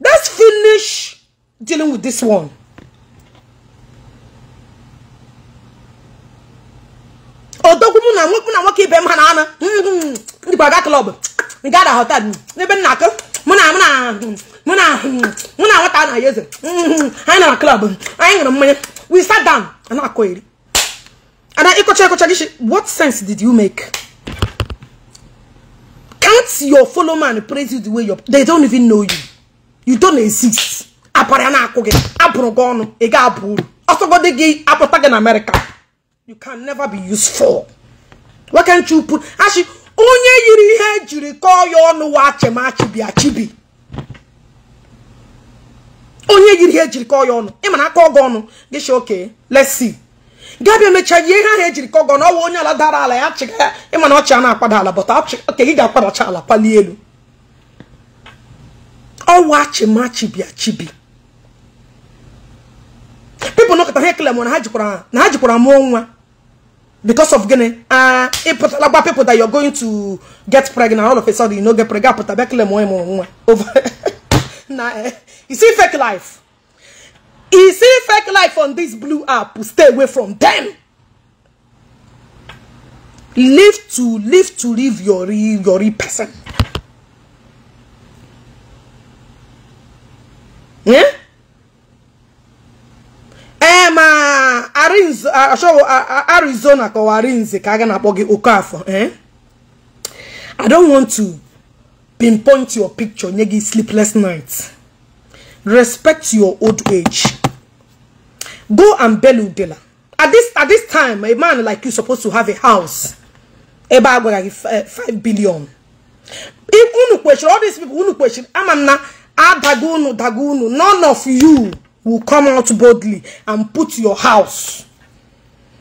let's finish dealing with this one. odogwu na nwekwu na nwoke ibe m ha na anụ ndị gbaga hmm, klọb nga ada hotel n'ebe nna akụ mụ na mụ na mụ na mụ na nwata na yeze anyị nara klọb anyị ṅụrụ mmanya we sat down ana I eri ana ịkọcha ịkọcha gị what sense did you make can't your follow man praise you the way you they don't even know you you don't exist apara na-akụ gị abụrụ gị ọnụ ị ga-abụ uru ọsọgodi gị apụta gị na amerịka you can never be useful why can't you put achị onye yiri ihe ejiri kọọ ya ọnụ wa achemachibi achibi onye yiri ihe ejiri kọọ ya ọnụ ị mana akọ ọgụ ọnụ gị shi oke let's see gabịa mechaa ihe ahụ ejiri kọọ gị ọnụ ọwa onye ala dara ala ya chịga ya ịma na ọchị a na-akwada ala bọta oke gị ga-akwadacha ala palie elu ọwa achịmachibi achibi people nọkọta ha ekele na ha jikwara na ha jikwara mụọ nwa because of gịnị ah ịpụtala gba people that you're going to get pregnant all of a sudden you no get pregnant apụta bịa kele mụọ ịmụrụ nwa over na eh. you see fake life you see fake life on this blue app stay away from them live to live to live your real your real person yeah arizona kọwara nze ka a ga na-akpọ gị okafọ eh? i don't want to pinpoint your picture nye gị sleepless night respect your old age go and belu dela at this at this time a man like you supposed to have a house ebe a gwara gị 5 eh, billion unu kwechiri all these people unu kwesịrị ama na adago unu dago unu none of you will come out boldly and put your house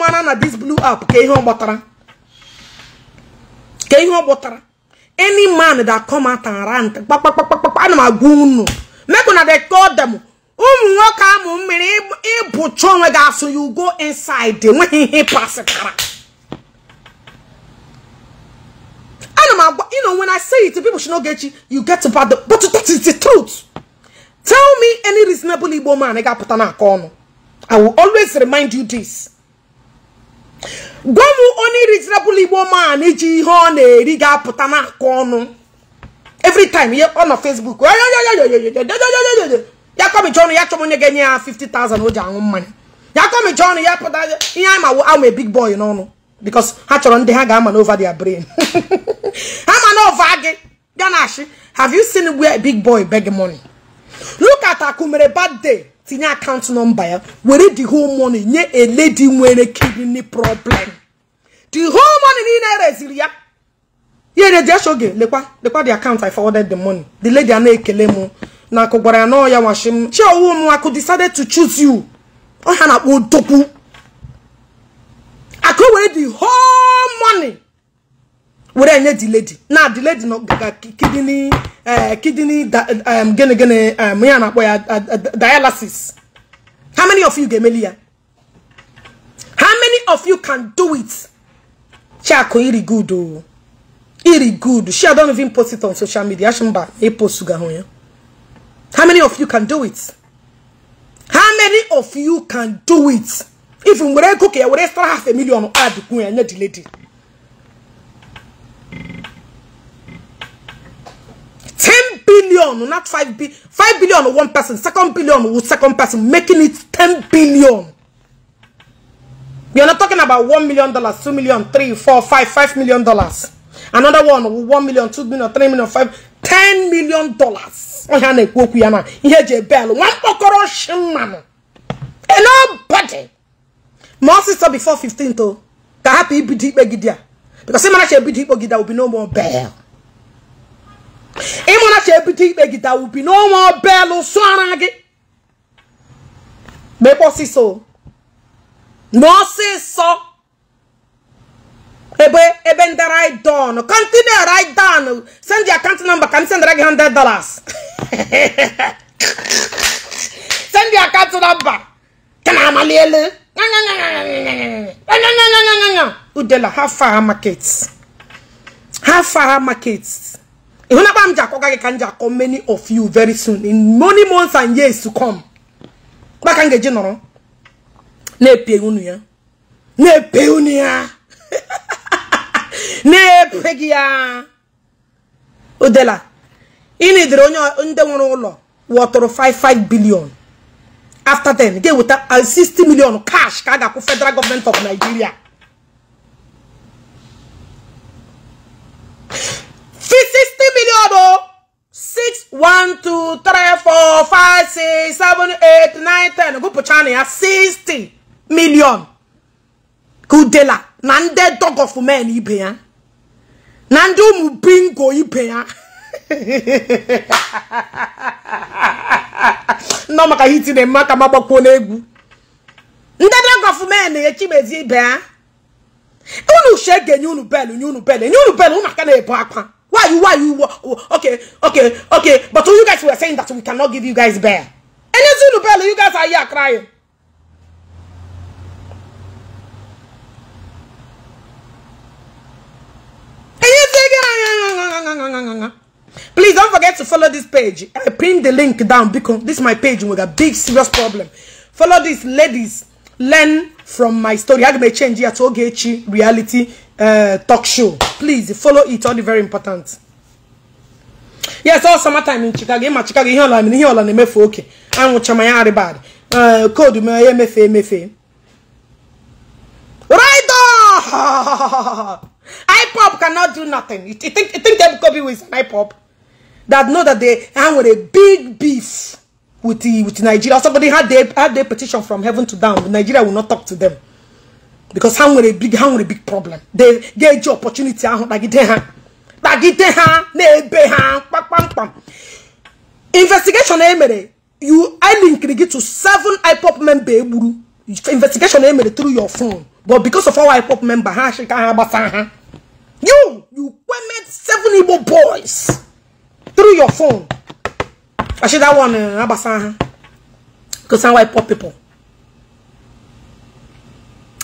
mara na this blue app ka ihe ọ gbọtara ka ihe ọ gbọtara any man that come out and rant kpakpakpakpakpa ana m agwa unu mekụ na dey call them ụmụ nwoke amụ mmiri ịbụcha onwe gị asụ you go inside enweghị ihe pasịtara ana agwa you know when i say it people should know Gechi you get to bad but that is the truth tell me any reasonable Igbo man ị ga-apụta n'aka ọnụ I will always remind you this. Gwa m onye reasonable Igbo man iji ihe ọ na-eri ga-apụta na n'aka ọnụ. Every time ihe ọ nọ Facebook ya kọmicha ọnụ ya chọrọ onye ga-enye ya 50,000 o ji aṅụ mmanya. Ya kọmicha ọnụ ya pụta ihe anyị mawo a big boy n'ọnụ because ha chọrọ ndị ha ga-ama n'over their brain. ha ma n'ova gị bịa na-achị have you seen where big boy beg money? Look at Akumere bad day. tinye akaụntụ nọmba ya were the whole money nye a lady nwere kidney problem the whole money niile reziri ya ihe na-eji eche oge lekwa lekwa the account i forwarded the money the lady a na-ekele m na akụ gwara ya na ọya washi m chiowu m akụ decided to choose you ọha na-akpọ odogwu akụ were the whole money were nye ledi na di ledi diledi kidney eh, kidney gịnị gịnị ya na-akpọ ya dialysis how many of you ga-emeli ya how many of you can do it chiako iri good o iri good she don't even post it on social media shimba epost ga hụ ya how many of you can do it how many of you can do it if were ego ka ya were stara half a million adịkwu ya nye ledi. 10 billion, not 5 billion. 5 billion one person, second billion with second person, making it 10 billion. We are not talking about 1 million dollars, 2 million, 3, 4, 5, 5 million dollars. Another one with 1 million, 2 million, 3 million, 5, 10 million dollars. Oh, yana kwoku yana. Ihe je bell. One pokoro shimano. And nobody. My sister before 15 to. Ka happy ibidi ibegidia. Because same man she ibidi ibegidia will be no more bell. ịmụna cha ebido ikpe gị dawubi n'ọnwa ọbelụ sụara gị mekpe na ebe ebe ndị right down kọntinu right down send ka m sendara gị 100 dollars send akant ka na amalielu udela ha far markets ha ịhụnakwa m ji akọga gị ka m akọ many of you very soon in many months and years to come ọgbaka m ga nọrọ na-epe unu ya na-epe unu ya na-epe gị ya odela ịnidere onye ndị nwere ụlọ wọtụrụ 55 billion after 10 ga-eweta 60 million cash ka a ga-akwụ federal government of Nigeria sixty million o oh. six one two three four five six seven eight nine ten gụpụcha ya sixty million ka na ndị dog of men ibe ya na ụmụ bingo ibe ya nọ maka hiti na mma ka ma nde dog of men echimezie ibe ya unu che ga unu bel nye unu bel enye unu bel aka na-ebu akwa Why you, why you, okay, okay, okay. But you guys were saying that we cannot give you guys bear. And it's Zulu Bello, you guys are here crying. Please don't forget to follow this page. I pinned the link down because this is my page with a big serious problem. Follow this, ladies. learn from my story aga m change ya to Ogechi reality uh, talk show please follow it all the very important yes all summertime in Chicago ịma Chicago ihe ọla ihe ọla na-emefu oke anwụcha ma ya bad. koodu uh, m ya emefe emefe right IPOB cannot do nothing you think you think Ebuka Obi is an IPOB that know that they ha nwere big beef with the with Nigeria. Somebody had their had their petition from heaven to down. Nigeria will not talk to them because how a big how a big problem. They get your opportunity. Investigation emere eh, you I link it to seven IPOP member investigation emere eh, through your phone, but because of our IPOP member, You you women seven evil boys through your phone. i Actually, that one, uh, Abasa, because I'm white poor people.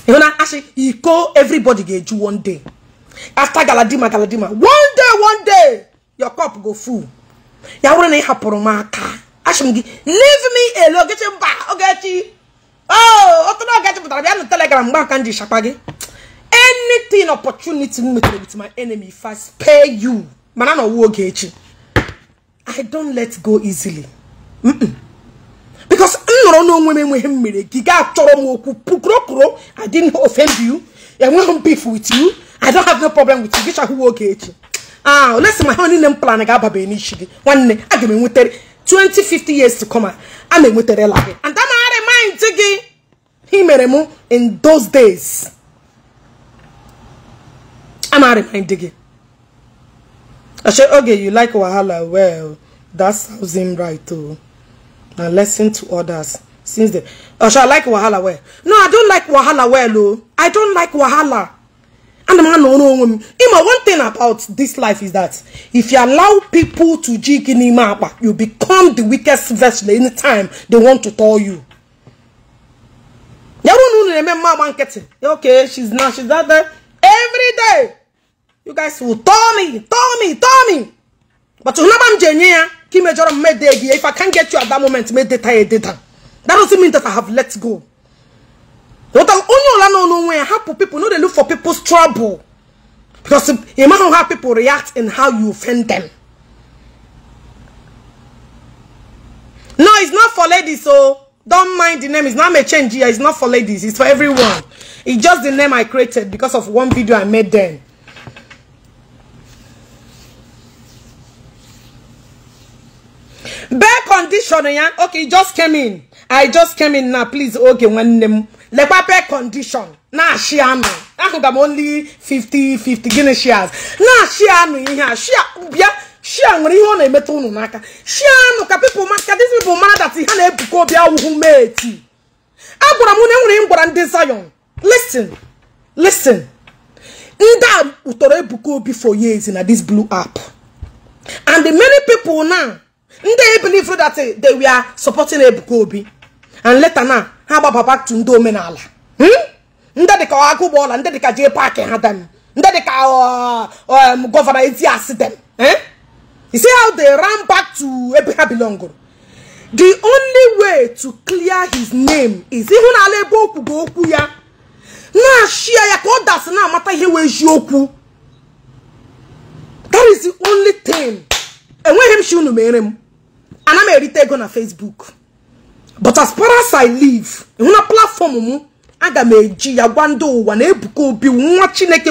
You know, actually, you call everybody get you one day. After Galadima, Galadima, one day, one day, your cup go full. Ya were na hapụrụ m aka. Ashim gị, leave me alone, get him back. Ogechi. Oh, otu na Ogechi pụtara bịa na Telegram mgbe aka nji shapa gị. Anything opportunity m metere with my enemy if I spare you. Mana na ọwụ Ogechi. I don't let go easily because m nọrọ n'onwe m enweghị mmiri gị gaa chọrọ m okwu pukurokuro I didn't offend you enweghị m beef with you I don't have no problem with you gịcha chahụwa oge echi ah let's ma my honey m plan ga-ababe n'isi gị nwanne a ga m enwetere 2050 years to come a na la gị and a na-remind gị he mere m in those days i'm na-remind you. i say okay you like wahala well that sounds him right too. Now listen to others since then osha i like wahala well no i don't like wahala well o i don't like wahala and the man no no, no. me ima one thing about this life is that if you allow people to jig in ima you become the weakest vessel anytime they want to tell you yawo nu na eme okay she's now she's out there every day You guys will tell me, tell me, tell me. But you know I'm genuine. Kim Jong made the If I can't get you at that moment, made the tie data. That doesn't mean that I have let go. What I only know no way how people know they look for people's trouble. Because you know how people react and how you offend them. No, it's not for ladies, so oh. don't mind the name. It's not me change here. It's not for ladies. It's for everyone. It's just the name I created because of one video I made then. bare condition ya okay just came in i just came in na please oge nwanne m lekwa bee condition na-achị anụ ahụga m only 50 50 gịnị shares na-achị anụ ihe a shia bịa shia nwere ihe ọ na-emeta unu n'aka she anụ ka people ka these people mara that ha na-ebuka obi awụhụ meeti agwara m na nwere m gwara ndị Zion listen listen ndị a tọrọ ebuka obi for years na this blue app and many people now ndị believe that eh, they were supporting Ebuka Obi and later na ha gbaba back to ndị omenala hmm? ndị dịka Agụgbọala ndị dịka Jay Park ha dem ndị dịka gọvanọ Etias dem you see how they ram back to ebe ha belong the only way to clear his name is n'ala ebe o kwugo okwu ya na-ashia ya ka ọ dasị na-amata ihe wee eziokwu that is the only thing enweghị m shi unu mere m ana m erite ego na facebook but as far as i live na platform m aga m eji ya gwa ndị ụwa na Ebuka Obi nwa chineke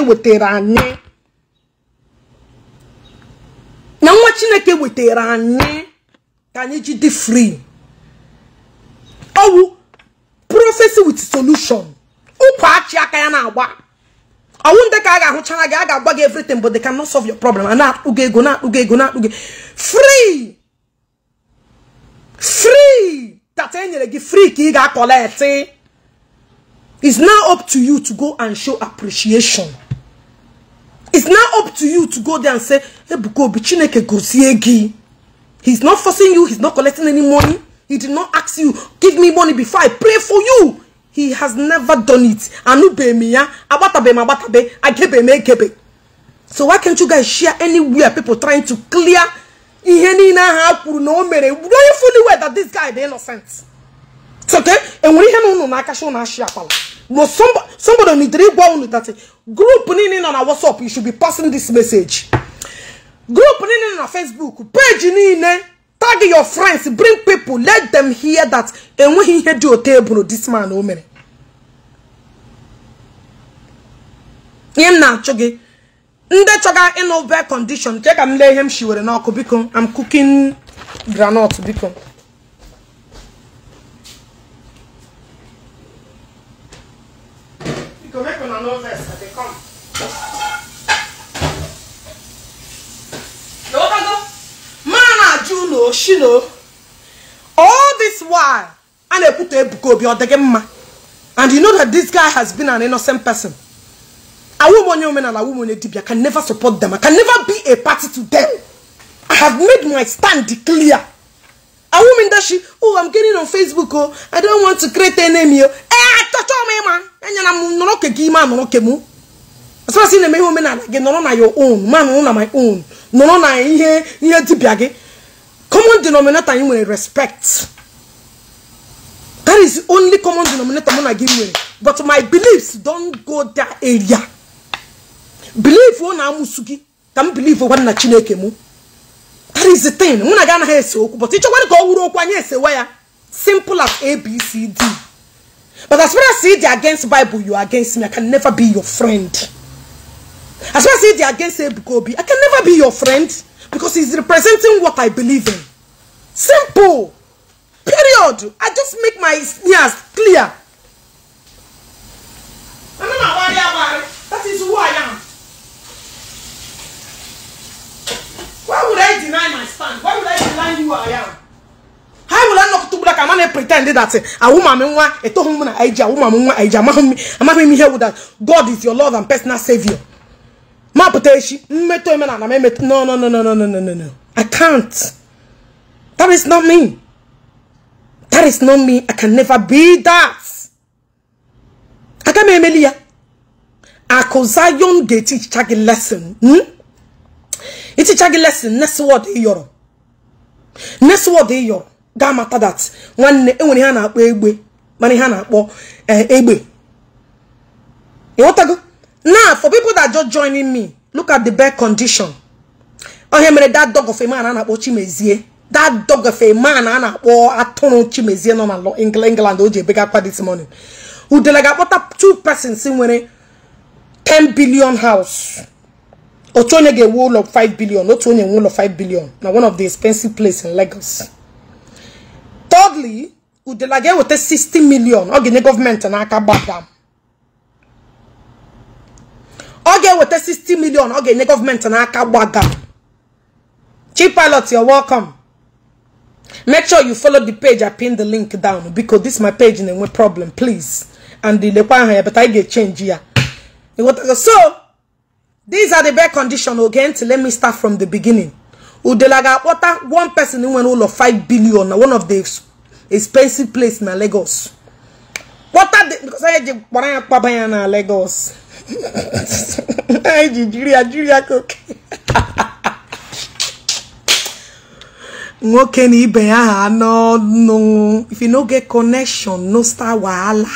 wetara anyị ka anyị ji dị free owu prophecy with solution ụkwa achị aka ya na-agba ọwụ ndị ka a ga-ahụchara gị a ga-agwa gị everything but they cannot solve your problem a na-akpụ ego na akpụgo ego na-akpụ free free that enyere gị free ka ị ga-akọleti it's now up to you to go and show appreciation it's now up to you to go there and say Ebuka Obi Chineke gozie gị he's not forcing you he's not collecting any money he did not ask you give me money before I pray for you he has never done it Anu be m ya agbatabeghị m be agebeghị m egebe so why can't you guys share anywhere people trying to clear ihe niile ahụ a kwuru na o mere do you fully aware that this guy is innocent soke enwere ihe na unu na-akacha unu ashi akpala no somebody needere ịgwa unu that group niile nọ na whatsapp you should be passing this message group niile nọ na facebook page niile tag your friends bring people let them hear that enweghị ihe dị ote eburu this man o mere ihe m na-achụ gị ndị chọga ịnụ bad condition Check chee ka m lee ihe m shiwere n'ọkụ biko am cooking groundnut biko mana ajụ no shino all this while a na put a book ọ your gị mma and you know that this guy has been an innocent person. A woman, a woman, and a woman, a dibia can never support them. I can never be a party to them. I have made my stand clear. A woman that she, oh, I'm getting on Facebook, oh, I don't want to create an enemy. Oh. Eh, touch all me, man. And I'm not okay, man, no okay, mu. As far as in the woman, I get no on your own, man, on my own. No, no, I hear, hear dibia. Common denominator, you will respect. That is the only common denominator I'm give you. But my beliefs don't go that area. belief ọ na-amụsu gị ka m belief gwa na chineke mụ that is the thing mụ na gị anaghị ese okwu but ịchọkwara ka ọ wuru okwu anyị esewa ya simple as abcd but as far as ịdị against bible you are against me i can never be your friend as far as ịdị against ebuka obi i can never be your friend because he's representing what i believe in simple period i just make my ears clear. that is who i am. Why would I deny my stand? Why would I deny who I am? How will I not to black? a man and pretend that eh, a woman, a woman, a woman, a woman, I'm not here with that. God is your Lord and personal Savior. Ma poteshi, eh, meto emena na memet. No, no, no, no, no, no, no, no, I can't. That is not me. That is not me. I can never be that. I can't be I me emelia. Akozayon geti chagi lesson. Hmm? iticha gị lesson next word ị yọrọ next word iyoro yọrọ ga mata that nwanne enwere ihe a na-akpọ egbe mana ihe a akpọ eh, egbe ịghọtago now for people that just joining me look at the bad condition onye mere that dog of a man a na-akpọ Chimezie that dog of a man a na-akpọ atụrụ Chimezie nọ na England o ji ebegakwa this morning udele ga-akpọta two persons nwere 10 billion house Otonege onye of billion Otonege one of 5 billion Now one of the expensive place in Lagos thirdly udela ga-eweta 60 sixty million. ọ the government and gbadam ọ ga-eweta sixty million. million government and gọọmenti chief Pilots, you're welcome make sure you follow the page i pin the link down because this my page na-enwe problem please and the aha ya but I get change ya so these are the bare conditions. again to let me start from the beginning udelaga water one person went all of five billion one of the expensive place na lagos water the because i je the ya pa lagos i jiria jiria cook nwoke na ibe ya no no if you no get connection no start wahala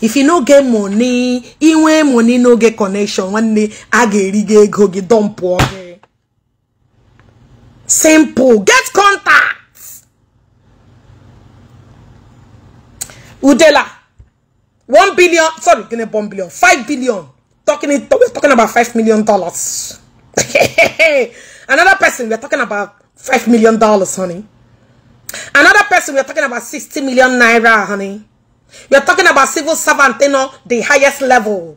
if you no get money inwe money no get connection nwanne a ga-eri gị ego gị dọmpụọ simple get contact udela 1 billion sorry 1 billion 5 billion talking we're talking about 5 million dollars another person we're talking about 5 million dollars honey another person we're talking about 60 million naira honey we are talking about civil servant, you know, the highest level.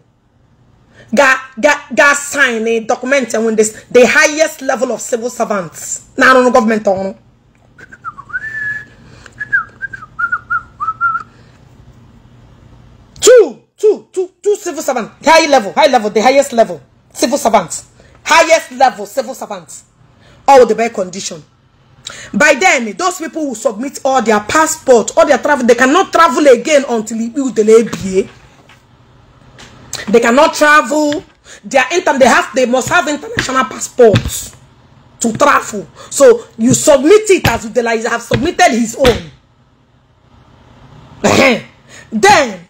Ga, ga, sign a document and when this the highest level of civil servants. Now no government on. Oh, two, two, two, two civil servants. High level, high level, the highest level. Civil servants. Highest level, civil servants. All the bad condition by then those people will submit all their passport all their travel they cannot travel again until they they cannot travel their inter they have they must have international passports to travel so you submit it as Udela have submitted his own then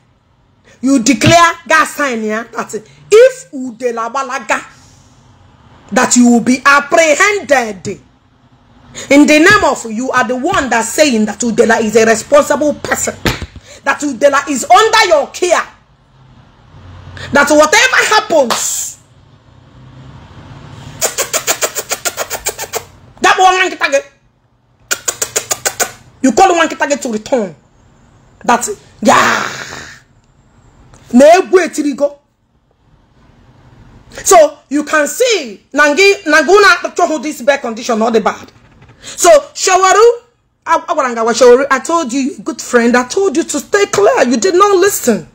you declare that sign here that if Udelabalaga that you will be apprehended in the name of you are the one that's saying that Udela is a responsible person, that Udela is under your care, that whatever happens, that one target, you call one target to return. That till you go. So you can see Nangi Naguna hold this bad condition, not the bad. so shawaru agwaranga shawaru i told you good friend i told you to stay clear you did not listen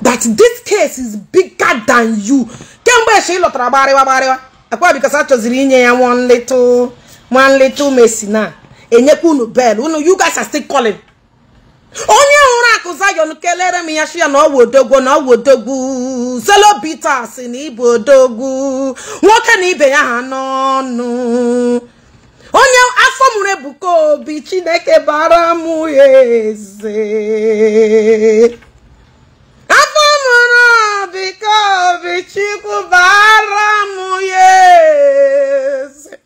that this case is bigger than you kemgbe eshe ịlọtara lọtara gbarịwa gbarịwa akwa because chọziri inye ya one little one little messi na enyekwu unu bel unu you guys are still calling onye hụrụ akụ zayon kelere m ya shi na ọwụ odogwu na ọwụ odogwu zelobita si na odogwu nwoke na ibe ya ha n'ọnụ onye afọ mụrụ ebuka obi chineke bara m eze afọ mụrụ obi ka obi chukwu bara m eze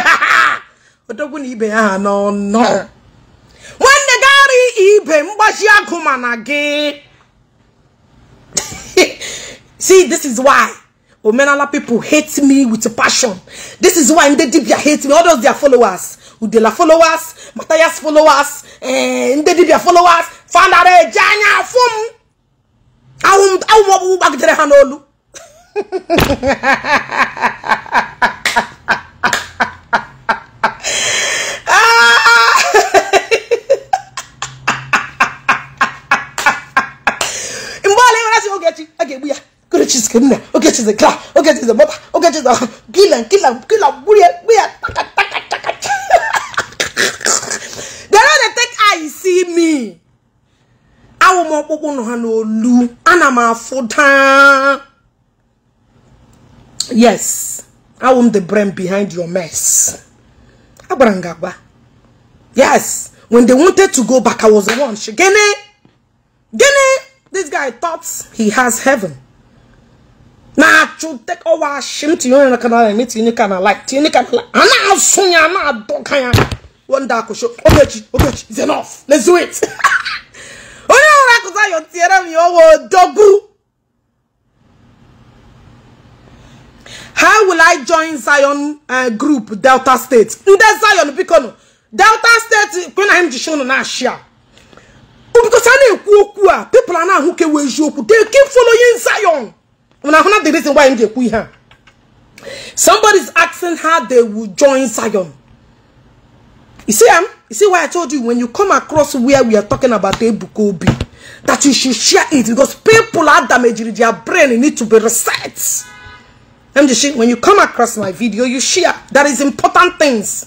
odogwu na ibe ya ha n'ọnọ nwanne gari ibe mgbaji ma na gị see this is why Omenala people hate me with passion. This is why Ndedibia hate me. All those their followers. Udela followers, Matthias followers, eh, Ndedibia followers, Fandare, Janya, Fum. Awum, awum, awum, awum, awum, awum,
awum, awum,
she's criminal. Okay, she's a crack. Okay, she's a mother. Okay, she's a kill and kill and kill and bully. We are taka taka taka. They don't take I see me. I Awo mo popo no hano lu. Ana ma foda. Yes, I am the brain behind your mess. Abrangaba. Yes, when they wanted to go back, I was the one. She gene, gene. This guy thought he has heaven. na atwo tek ɔwɔ ahyem te yɔn kana na ne te ne kana like te ne kana like ana aso ya ana adɔ kan ya wɔn da akɔhyɛ ɔbɛkyi ɔbɛkyi it's enough let's do it onye ɔwɔ akɔsa yɔ tie na mi ɔwɔ dɔgu how will I join Zion uh, group Delta State ndị Zion biko no Delta State kwe na m ji show no na ahyia because na-ekwu a people a na-ahụ ka eziokwu they keep following Zion. When I the reason why I'm here. Somebody's asking how they will join Zion. You see, um, you see why I told you when you come across where we are talking about Ebukobi, that you should share it because people are damaged, their brain need to be reset. I'm just when you come across my video, you share. That is important things.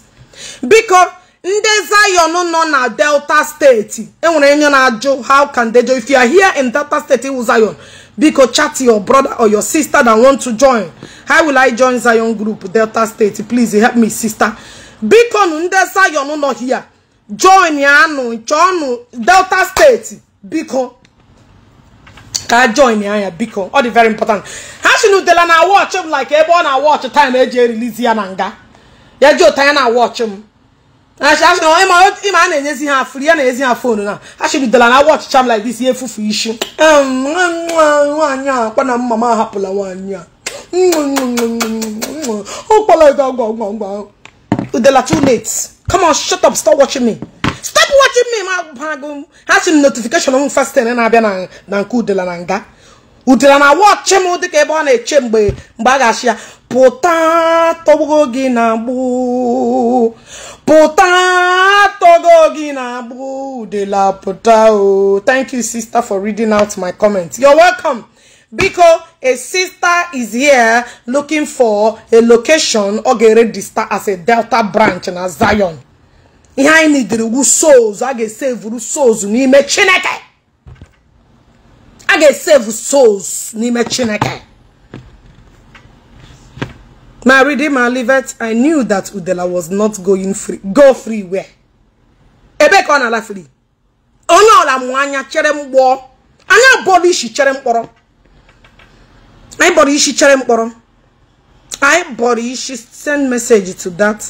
Because ndị Zion nọ na Delta steeti enwere enyo na how can they do if you are here in Delta steeti Zion biko chat your brother or your sister that want to join how will i join zion group delta state please help me sister biko nu ndị zion nọ here join ya nụ delta State biko ka join ya anya biko All dị very important ha si na watch m like ebe ọ na watch time eji e release ya na nga ya ji ụta ya na watch m ịma a na-enyezi ha afụrụ ya na ezi ha fonu na ha chidudela na watch cham like this ihe efufu isi nwaanyị akpa na mma ahapụla nwaanyị a ụkpọla ego gwa gwa udela too late come on shut up stop watching me stop watching me ha si m notification m na-abịa na nke udela na nga udela na watch m ebe ọ na-eche mgbe mgbe a ga-achị ya pụta tọgbuo gị na gboo pụta togo gị na-agba udela pụta ooo. Oh. thank you sister for reading out my comment you're welcome biko a sister is here looking for a location ọ ga-ere star as a delta branch na zion ihe anyị nidiri wu souls i ga-esevuru souls n'ime chineke i ga-esevu souls n'ime chineke Now reading livet, I knew that Udela was not going free. Go free where? Ebe kwa na la free. Ono la mwanya chere mbo. Anya body shi chere mporo. Anya body shi chere mporo. I body she send message to that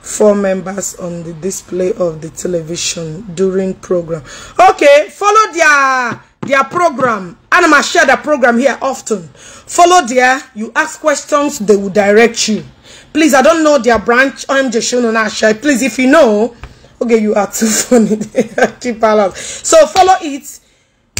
four members on the display of the television during program. Okay, follow their their program and i share the program here often follow there you ask questions they will direct you please i don't know their branch I'm showing shonon ashai please if you know okay you are too funny Keep so follow it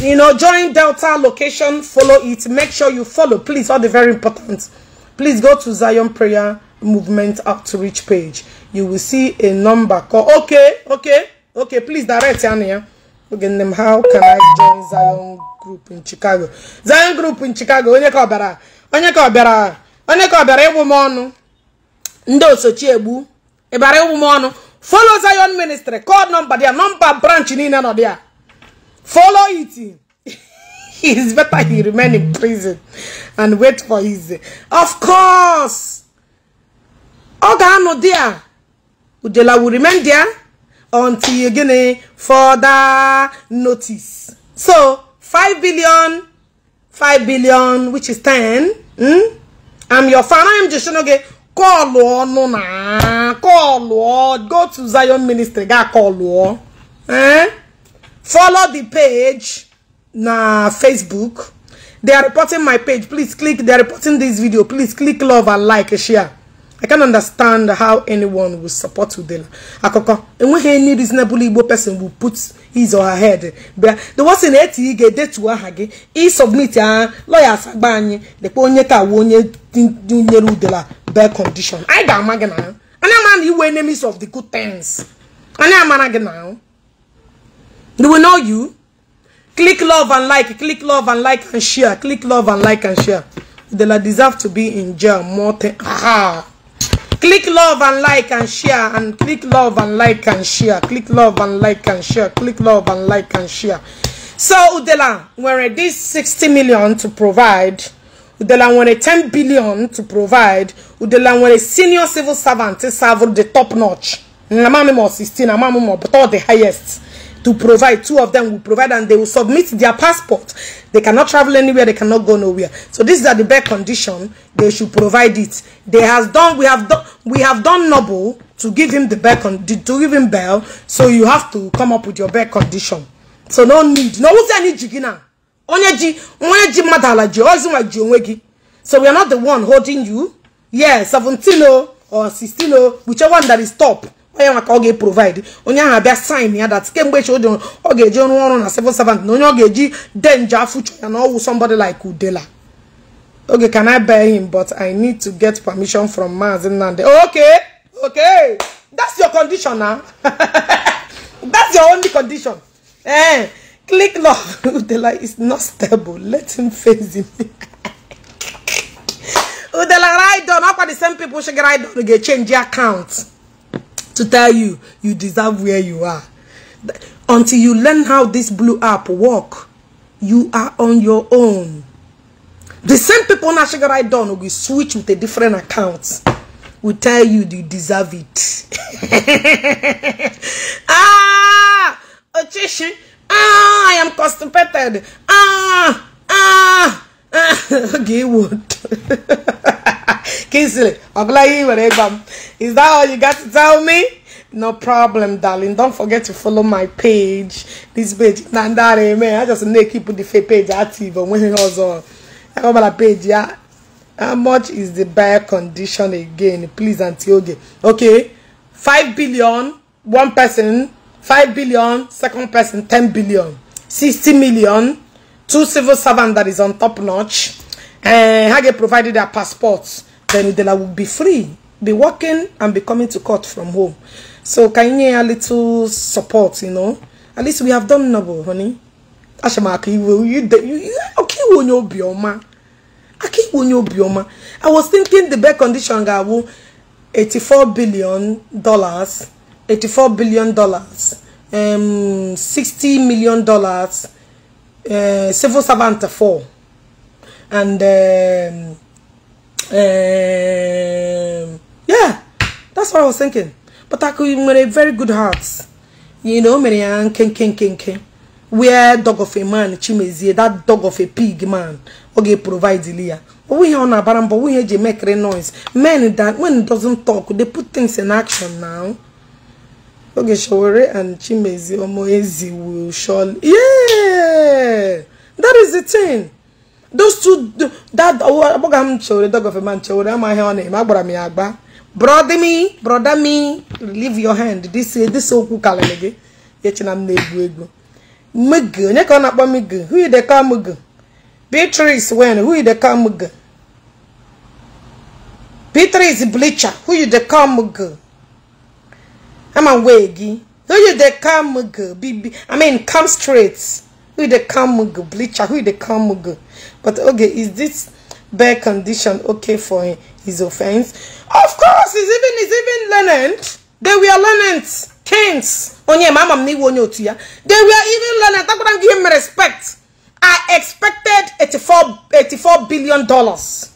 you know join delta location follow it make sure you follow please all the very important please go to zion prayer movement outreach page you will see a number call okay okay okay please direct here oge nne m how can I join Zion group in Chicago Zion group in Chicago onye ka ọ onye ka ọ onye ka ọ bịara ịgbụ m ọnụ ndị osochi egbu ịbara ịgbụ m ọnụ follow Zion ministry call number dia number branch niile nọ dia follow it is better he remain in prison and wait for his of course ọ ga-anọ dia udela will remain there until you again further notice. So 5 billion, 5 billion, which is 10. Hmm? I'm your fan. I'm just okay. Call on na call Lord. Go to Zion Ministry. Ga call Lord. Eh? Follow the page na Facebook. They are reporting my page. Please click. They are reporting this video. Please click love and like and share. I can understand how anyone will support Udela. Akoko, and when any reasonable Igbo person will put his or her head, but the was in eighty get that to Ahage, he submit a lawyer's Sagbany, the Ponyeta Wonye Junior Udela, bare condition. I got Magana, and I'm an you enemies of the good things. And I'm an now. Do we know you? Click love and like, click love and like and share, click love and like and share. Udela deserve to be in jail more than. click love and like and share and click love and like and share click love and like and share click love and like and share so udela nwere this 60 million to provide udela nwere 10 billion to provide udela nwere senior civil servant serve the top notch na mamimo 16 na mamimo but all the highest to provide. Two of them will provide and they will submit their passport. They cannot travel anywhere. They cannot go nowhere. So these are the bare condition. They should provide it. They has done. We have done. We have done noble to give him the bare con to give him bail. So you have to come up with your bare condition. So no need. No who's any jigina. Onye ji madala ji ozinwa So we are not the one holding you. Yeah, 17 or 16 whichever one that is top onye nwa ka ọ ga-eprovide onye ahụ abịa sign ya dat kemgbe echi oji ọ ga-eji ọrụ ọrụ na civil servant na onye ọ ga-eji denje afụchọ ya na ọwụ somebody like udela okay can i buy him but i need to get permission from maazi nnamdi okay okay that's your condition na that's your only condition eh click love udela is not stable let him face him udela ride on akwa the same people She should ride Get change the account to tell you you deserve where you are. Until you learn how this blue app work, you are on your own. The same people now sugar I done will switch with a different account. Will tell you you deserve it. ah, attention. Ah, I am constipated. Ah, ah, ah. okay, what? Kingsley, is that all you got to tell me? No problem, darling. Don't forget to follow my page. This page, Nandare, man. I just need to keep the fake page active when it was on. I got my page, yeah. How much is the buyer condition again? Please, Auntie Oge. Okay, 5 billion, one person, 5 billion, second person, 10 billion, 60 million, two civil servants that is on top notch. And eh, Hage provided their passports. then then I will be free, be working and be coming to court from home. So can you a little support, you know? At least we have done noble, honey. Ashamaki, you you you okay when you be oma. Aki when you be oma. I was thinking the best condition ga wo 84 billion dollars, 84 billion dollars, um 60 million dollars, uh civil servant four and um Um, yeah, that's what I was thinking. But I could with a very good heart. You know, many ken ken ken ken. Where dog of a man, Chimezie, that dog of a pig man, okay, provide Leah. But we on a baram, but we hear make noise. Men that when it doesn't talk, they put things in action now. Okay, Shawore and Chimezie Omoezi will surely. Yeah, that is the thing. those two that agbaga m chere dog of a man chere amaghị ọ eme agbara m ya agba brother me brother me leave your hand this eh, this okwu karịrị gị m na egbu egbu. mg onye ka ọ na-akpọ who dey call mg Beatrice wen who dey call mg Beatrice bleacher who dey ama wee gị who dey I mean come straight Who the kamugu bleacher? Who the kamugu? But okay, is this bad condition okay for his offense? Of course, he's even he's even lenant. They were lenant kings. Onye mama ni wonyo tuya. They were even lenant. I'm gonna give him respect. I expected 84 84 billion dollars.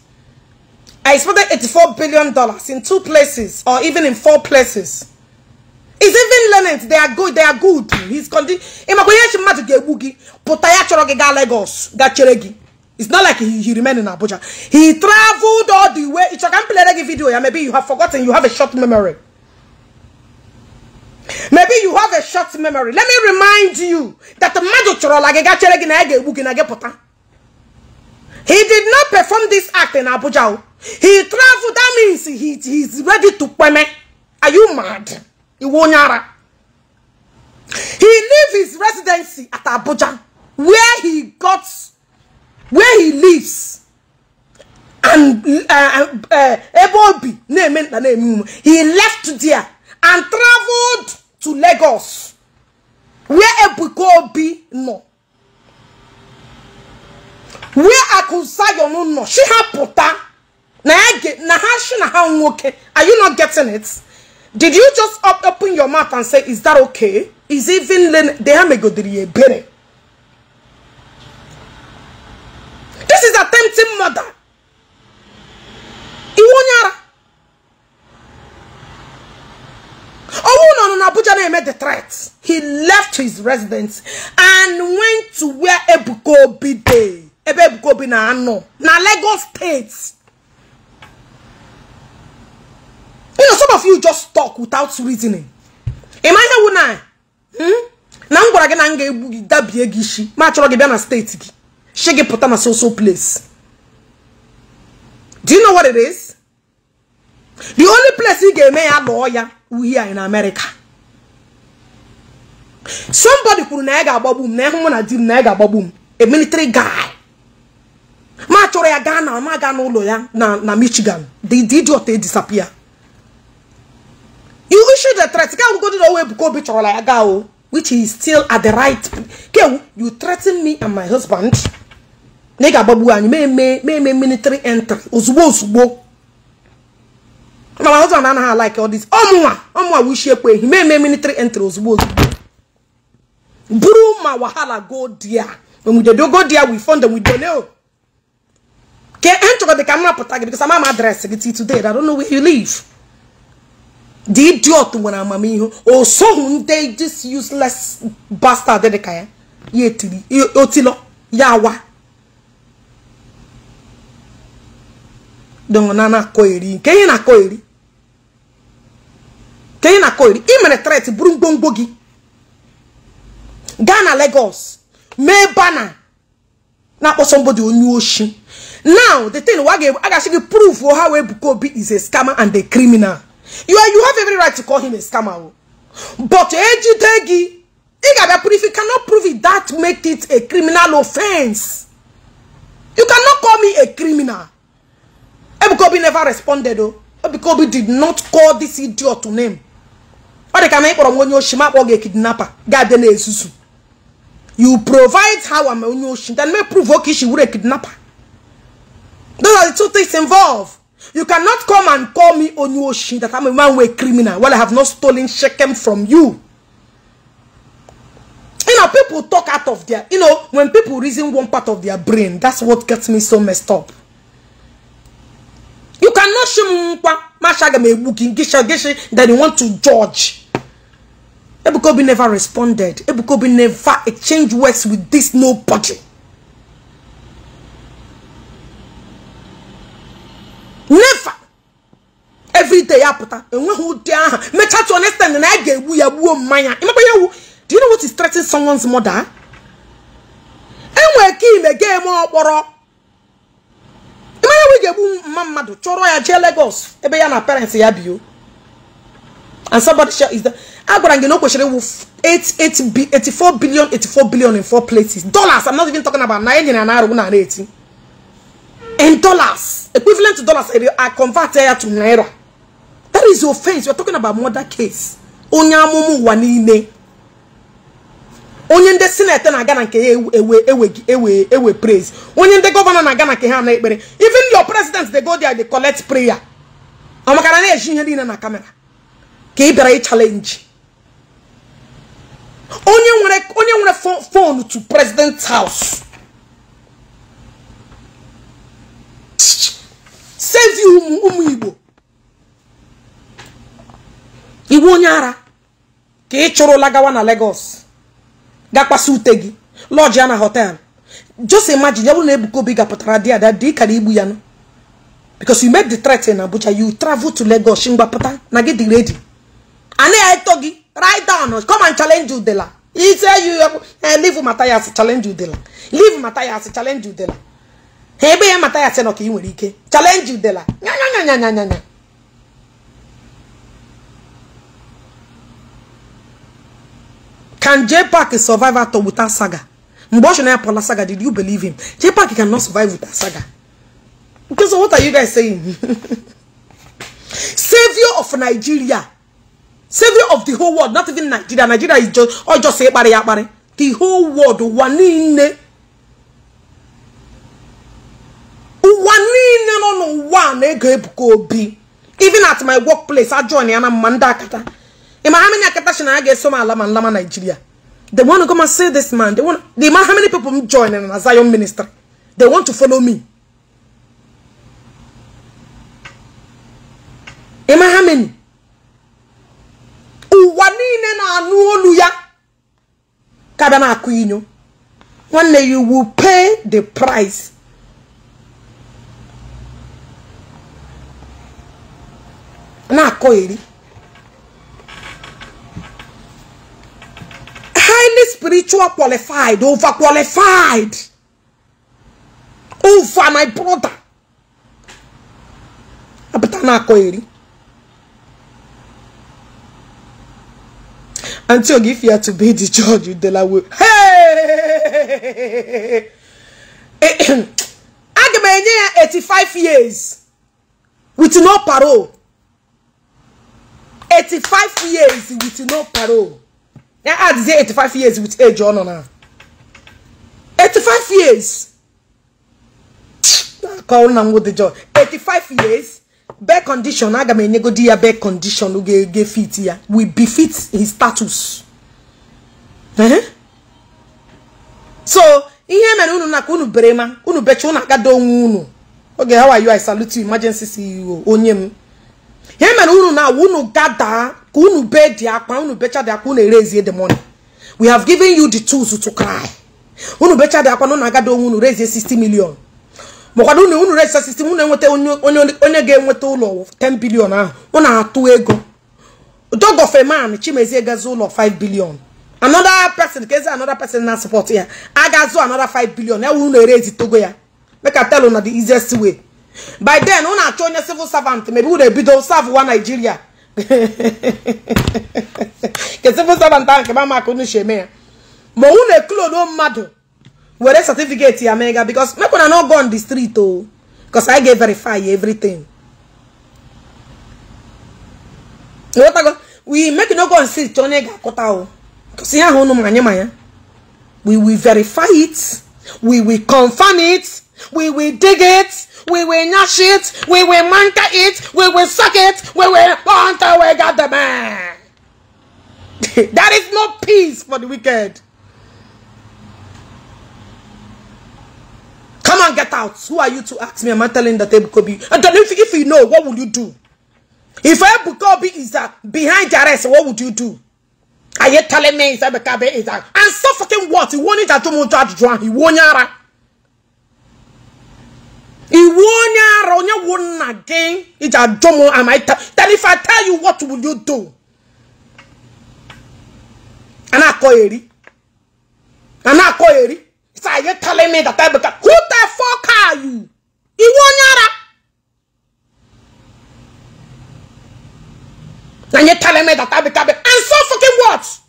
I expected 84 billion dollars in two places or even in four places. is even learning they are good they are good he's continue ịmakwa ihe echi mmadụ ga-egbu gị pụta ya Lagos it's not like he, he remained in Abuja he traveled all the way It's a complete pelere video Yeah, maybe you have forgotten you have a short memory maybe you have a short memory let me remind you that the magic gị ga chere na na he did not perform this act in Abuja he traveled that means he, he is ready to pay me. are you mad Iwonyara. He leave his residency at Abuja, where he got, where he lives. And uh, uh, Ebobi, name he left there and traveled to Lagos, where be no. Where I Akusayo no no. She have puta. Na ha na ha she na ha Are you not getting it? Did you just up, open your mouth and say, is that okay? Is even len dehamegodiri ebere? This is attempting murder. Iwonyara. Owuno no Abuja made the threat. He left his residence and went to where Ebuko Obi dey. na ano. Na Lagos State. you know some of you just talk without reasoning ị ma ihe wụ na hmm? na m gwara gị na m ga-egbu gị dabie gị isi ma chọrọ gị bịa na steeti gị shi pụta na soso place do you know what it is the only place ị ga-eme ya lụọ ya uhie anyị na America somebody kwuru na ya ga-agbagbu m na ịhụ na di m na ya ga-agbagbu m a military guy ma chọrọ ya gaa na ma gaa n'ụlọ ya na na Michigan the idiot disappear you issued a threat ka akwụkwọ dị na owe ebuka bitch, or like gaa o which is still at the right Okay, you threaten me and my husband na ị ga-agbagbu anyị mee mee military entry ozugbo ozugbo my husband and anaghị like all this ọmụnwa ọmụnwa wishi ekwe ehi mee mee military entry ozugbo ozugbo buru ma wahala go there when we do go there we fund them we donate ke ntụgọ dị ka m rapụta gị because I'm my gị till today I don't know where you live the idiot nwere amamihe o soghị ndị this useless bastard dị ka ya ya etiri otilo ya awa dọna na-akọ eri nke ihe na-akọ eri nke ihe na-akọ eri ị tret bụrụ ngwongwo gị gaa na Lagos mee bana na-akpọ somebody onye oshi now the thing wa ga-agasị gị prove ha wee Ebuka Obi is a scammer and a criminal You, you have every right to call him a scammer. Oh. But Ejidegi, if you cannot prove it, that makes it a criminal offense. You cannot call me a criminal. Ebukobi never responded though. Ebukobi did not call this idiot to name. Or they can make from when you shima or get kidnapper. Garden is You provide how I'm on your shin, then may provoke she would a kidnapper. Those are the two things involved. You cannot come and call me Onyoshin that I'm a one-way criminal while I have not stolen Shechem from you. You know, people talk out of their, you know, when people reason one part of their brain, that's what gets me so messed up. You cannot shimpa mashagamewuki gisha gishi that you want to judge. Ebukobi never responded. Ebukobi never exchanged words with this nobody. never everyday ya pụta enweghị ụdị aha mechaa to understand na ya ga-egbu ya gbuo mmanya ịmakwa ya ewu do you know what is threatening someone's mother enwere ka ime ga-eme ọkpọrọ ịmanya we ga-egbu mma mmadụ chọrọ ya jee Lagos ebe ya na parents ya bio and somebody share is the agwara gị na o kwesịrị iwu 84 billion 84 billion in four places dollars i'm not even talking about na enyi na na arụ na na eti in dollars, equivalent to dollars, I convert here to naira. That is offense. You're talking about murder case. Onyamumu wanine. onye ndị senate na-aga na nke ya ewe ewe praise onye ndị gọvanọ na-aga na nke ha na ekpere even your president dey go there they collect prayer amakara na-eji ihe niile na kamera ka ị bịara onye nwere onye nwere phone to president house sevi ụmụ ụmụ igbo iwu onye ara ka ị chụrụla gawa na Lagos gakwasị ute gị lọji ya na họtel jose imagine ya bụ na Ebuka Obi gapụtara di ada dị kara igbu ya nụ because you made the threat in Abuja you travel to Lagos ngwapụta na gị dị ready anaghị eto gị write down come and challenge udela ise you eh, leave Matthias challenge udela leave Matthias challenge udela ha ebe ya mata ya sị na ka ị nwere ike chalenji udela nyanyanyanyanyanya can J Park survive at without saga mgbe ọ chọrọ ya pụla saga did you believe him J Park can not survive without saga so what are you guys saying savior of Nigeria savior of the whole world not even Nigeria Nigeria is just ọ jọsọ ịkparị ya akparị the whole world ụwa niile ụwa niile nọ n'ụwa na-ego Ebuka Obi even at my workplace ajọn ya na mma ndị akata ịma ha akata si na ya ga-eso m ala ma nlama Nigeria they want to come and see this man the want they how many people m join na Zion ministry they want to follow me ịma ha ụwa niile na-anụ olu ya ka bịa na-akụ inyo nwanne you will pay the price na-akọ eri highly spiritual qualified over qualified over my brother apụta na-akọ eri until if you are to be the judge in Delaware. Hey! I've been here 85 years with no parole 85 years with no parole ya adịzie 85 years with age ọ nọ ah, na 85 years akọ na nwụ dị joy 85 years bed condition aga m enyegodi ya bed condition ga-ege fit ya we befit his status eh? so ihe mere unu naka unu bere ma unu becha unu agado onwe unu oge how are you i salute you emergency CEO onye m ihe mere unu na unu gada ka unu be di akpa unu becha dị akpa unu erezie the money we have given you the tools to cry unu becha akwa akpa na unu agada onwe unu rezie 60 million makwado unu unu rezie 60 million enweta onye ga-enweta ụlọ 10 billion ahụ unu atụ ego dog of a man chimezie gazi ụlọ 5 billion another person ka ezi another person na support ya agazu another 5 billion ya wuru unu erezi togo ya make i tell you the easiest way by then unu achọ onye civil servant maybe unu ebido serve wa Nigeria ke civil servant ahụ nke mamaka unu si eme ya na unu eklodo mmadụ were certificate ya mega because mekwana no go on the street o oh. because I ga verify everything go, we make no go on street onye ga-akụta o oh. because ihe ahụ manya manya we will verify it we will confirm it we will dig it We will gnash it. We will manka it. We will suck it. We will hunt away God the man. that is no peace for the wicked. Come and get out. Who are you to ask me? Am I telling that Ebukobi? And then if, if you know, what would you do? If Ebukobi is uh, behind the arrest, what would you do? Are you telling me is Ebukobi uh, is that? And so fucking what? He won't to do He won't iwu onye ara onye wụ nna gị iji ajụ m am I tell if I tell you what will you do a na-akọ eri a na-akọ eri it's like you telling me that I become who the fuck are you iwu onye ara na you telling me that I become and so fucking what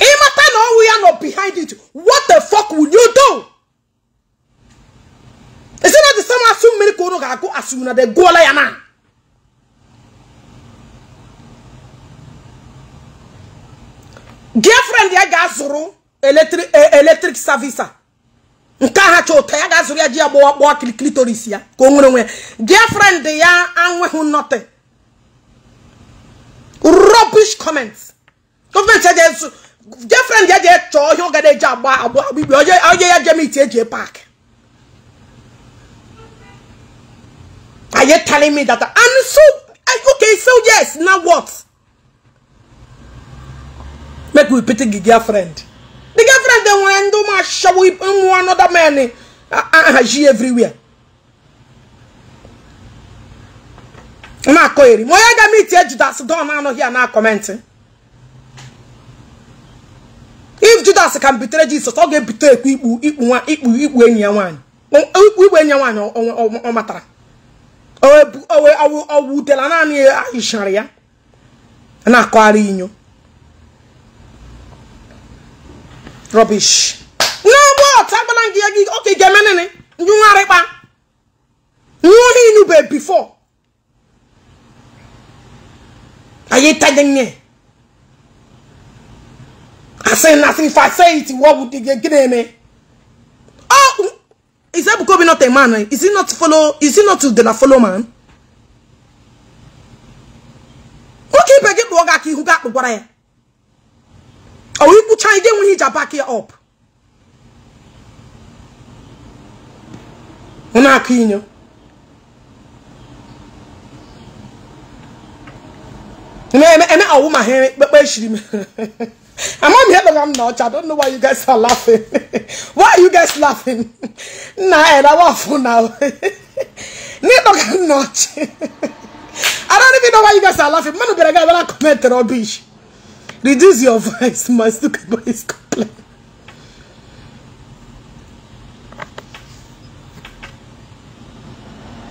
ịmata na ọnwụ ya nọ behind it what the fuck will you do is it not the same asụ mmiri ka unu ga-agụ asụ na de gụọla ya na girlfriend ya ga-azụrụ eletrik e, savisa nke aha chọ ụtọ ya ga-azụrụ ya ji ya kilikili kpọọ kilitoris ya ka o nwere onwe ya girlfriend ya anweghị nothing rubbish comments gọọmenti girlfriend ya jee chọọ ihe ọga na-eji agba agba agbigbe onye ya jee miti eji pak Are you telling me that? And so, eh, okay, so yes, now what? Make we pity the girlfriend. The girlfriend, they want to do my show with one another man. Uh, she everywhere. I'm not going. My other meeting, that's done. I'm not here now commenting. if judas ka bitere jesus ọ ga-ebite ikpu ikpu ikpu enyi ya nwaanyị ikpu ikpu enyi ya ọ matara ọ naanị ya ya na-akọgharị inyo ya gị oke ga ndị bifo anyị nothing. If I say it, what would you get me? Oh, is that Ebukobi not a man? Is he not follow? Is he not the follow man? Okay, but get Boga ki who got the boy? Oh, you put China when he back here up. Una kinyo. Me me me a woman here, but be shiri me. I'm on here, but I'm not. I don't know why you guys are laughing. why are you guys laughing? Nah, and I want for now. not. I don't even know why you guys are laughing. Man, be like, I comment rubbish. Reduce your voice, my stupid boy is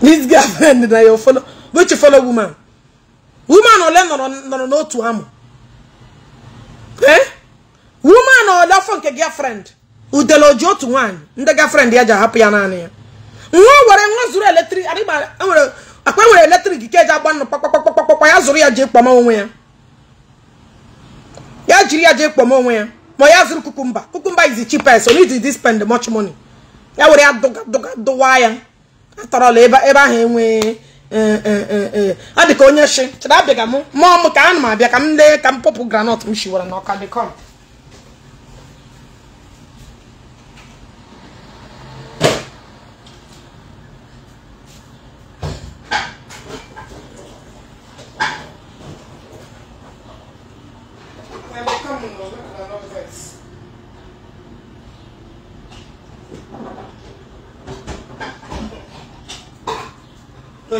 This girlfriend that your follow, which you follow woman? Woman, or learn or no, to ammo. Eh? woman ọdafọ nke girlfriend udele oji otu nwaanyị ndị girlfriend ya ji ahapụ ya naanị ya nwa were nwa zuru eletrik akpa nwere eletrik ke eji agba nnụ kpakpakpakpakpa ya zụrụ ya ji kpọma onwe ya ya jiri ya jee kpọma onwe ya ma ya zụrụ kukumba kukumba is the cheapest so need to spend much money ya were ya dụwa ya atọrọla ebe ahụ enwee ọ dị ka onye shi chịrị abịaga m mụọ m ka anụ m abịa ka m lee ka m pọpụ granọt m shiwara dị dịkọm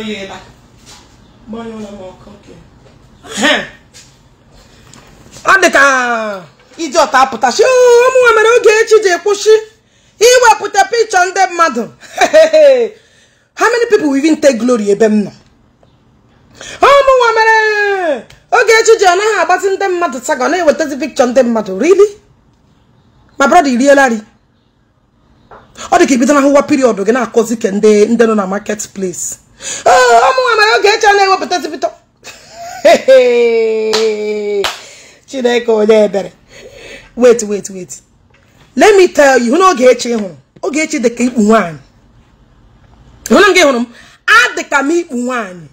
m ọkụ ọ dị ka iji ọta apụtasị ụmụnwa mere oge echi ji kwụsị iwepụta pikchọ ndị mmadụ how many people will even take glory ebe m nọ ụmụnwa mere oge echi ji ọ naghị agbatị ndị mmadụ taga ọ na-ewetazi pikchọ ndị mmadụ rili ma brọda irielari ọ dị ka ibido na ahụwa piriọdụ gị na-akọzi ke ndị nọ na market place Ah, ụmụnwa mara oge echa na-ewepụtasịpụta ewepụta chineke onye ebere wait wait wait let me tell you hụ na oge echi hụrụ oge echi dịka ikpu nwaanyị hụna m gị hụrụ m adịka m ikpu nwanyị.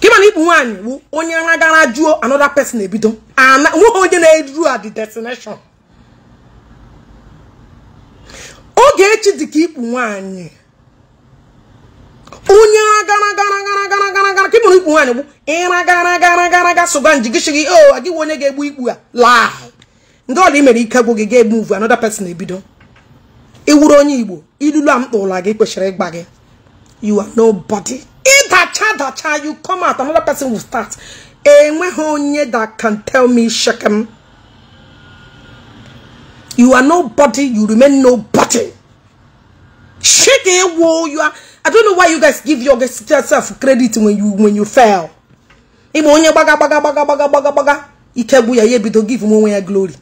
ka ịma na ikpu nwaanyị bụ onye nra gara jụọ another person ebido nweghị onye na-eru at the destination oge echi dịka ikpu nwaanyị onye agaragaragaragaragara ka ịmụrụ ikpu nwaanyị bụ ịra gara gara gara ga sụga njigishigi o oh, onye ga-egbu ikpu laa ndị ọla imere ike gwụ gị ga-egbu uvu another ebido iwuru onye igbo ilulu a mkpa ụla gị kwesịrị ịgba gị you nobody ịdacha dacha you come out start enweghị onye that can tell me shekem you are nobody you remain nobody you are I don't know why you guys give yourself credit when you when you fail. Imo onye baga baga baga gbaga gbaga gbaga ikegbu ya to give him when ya glory.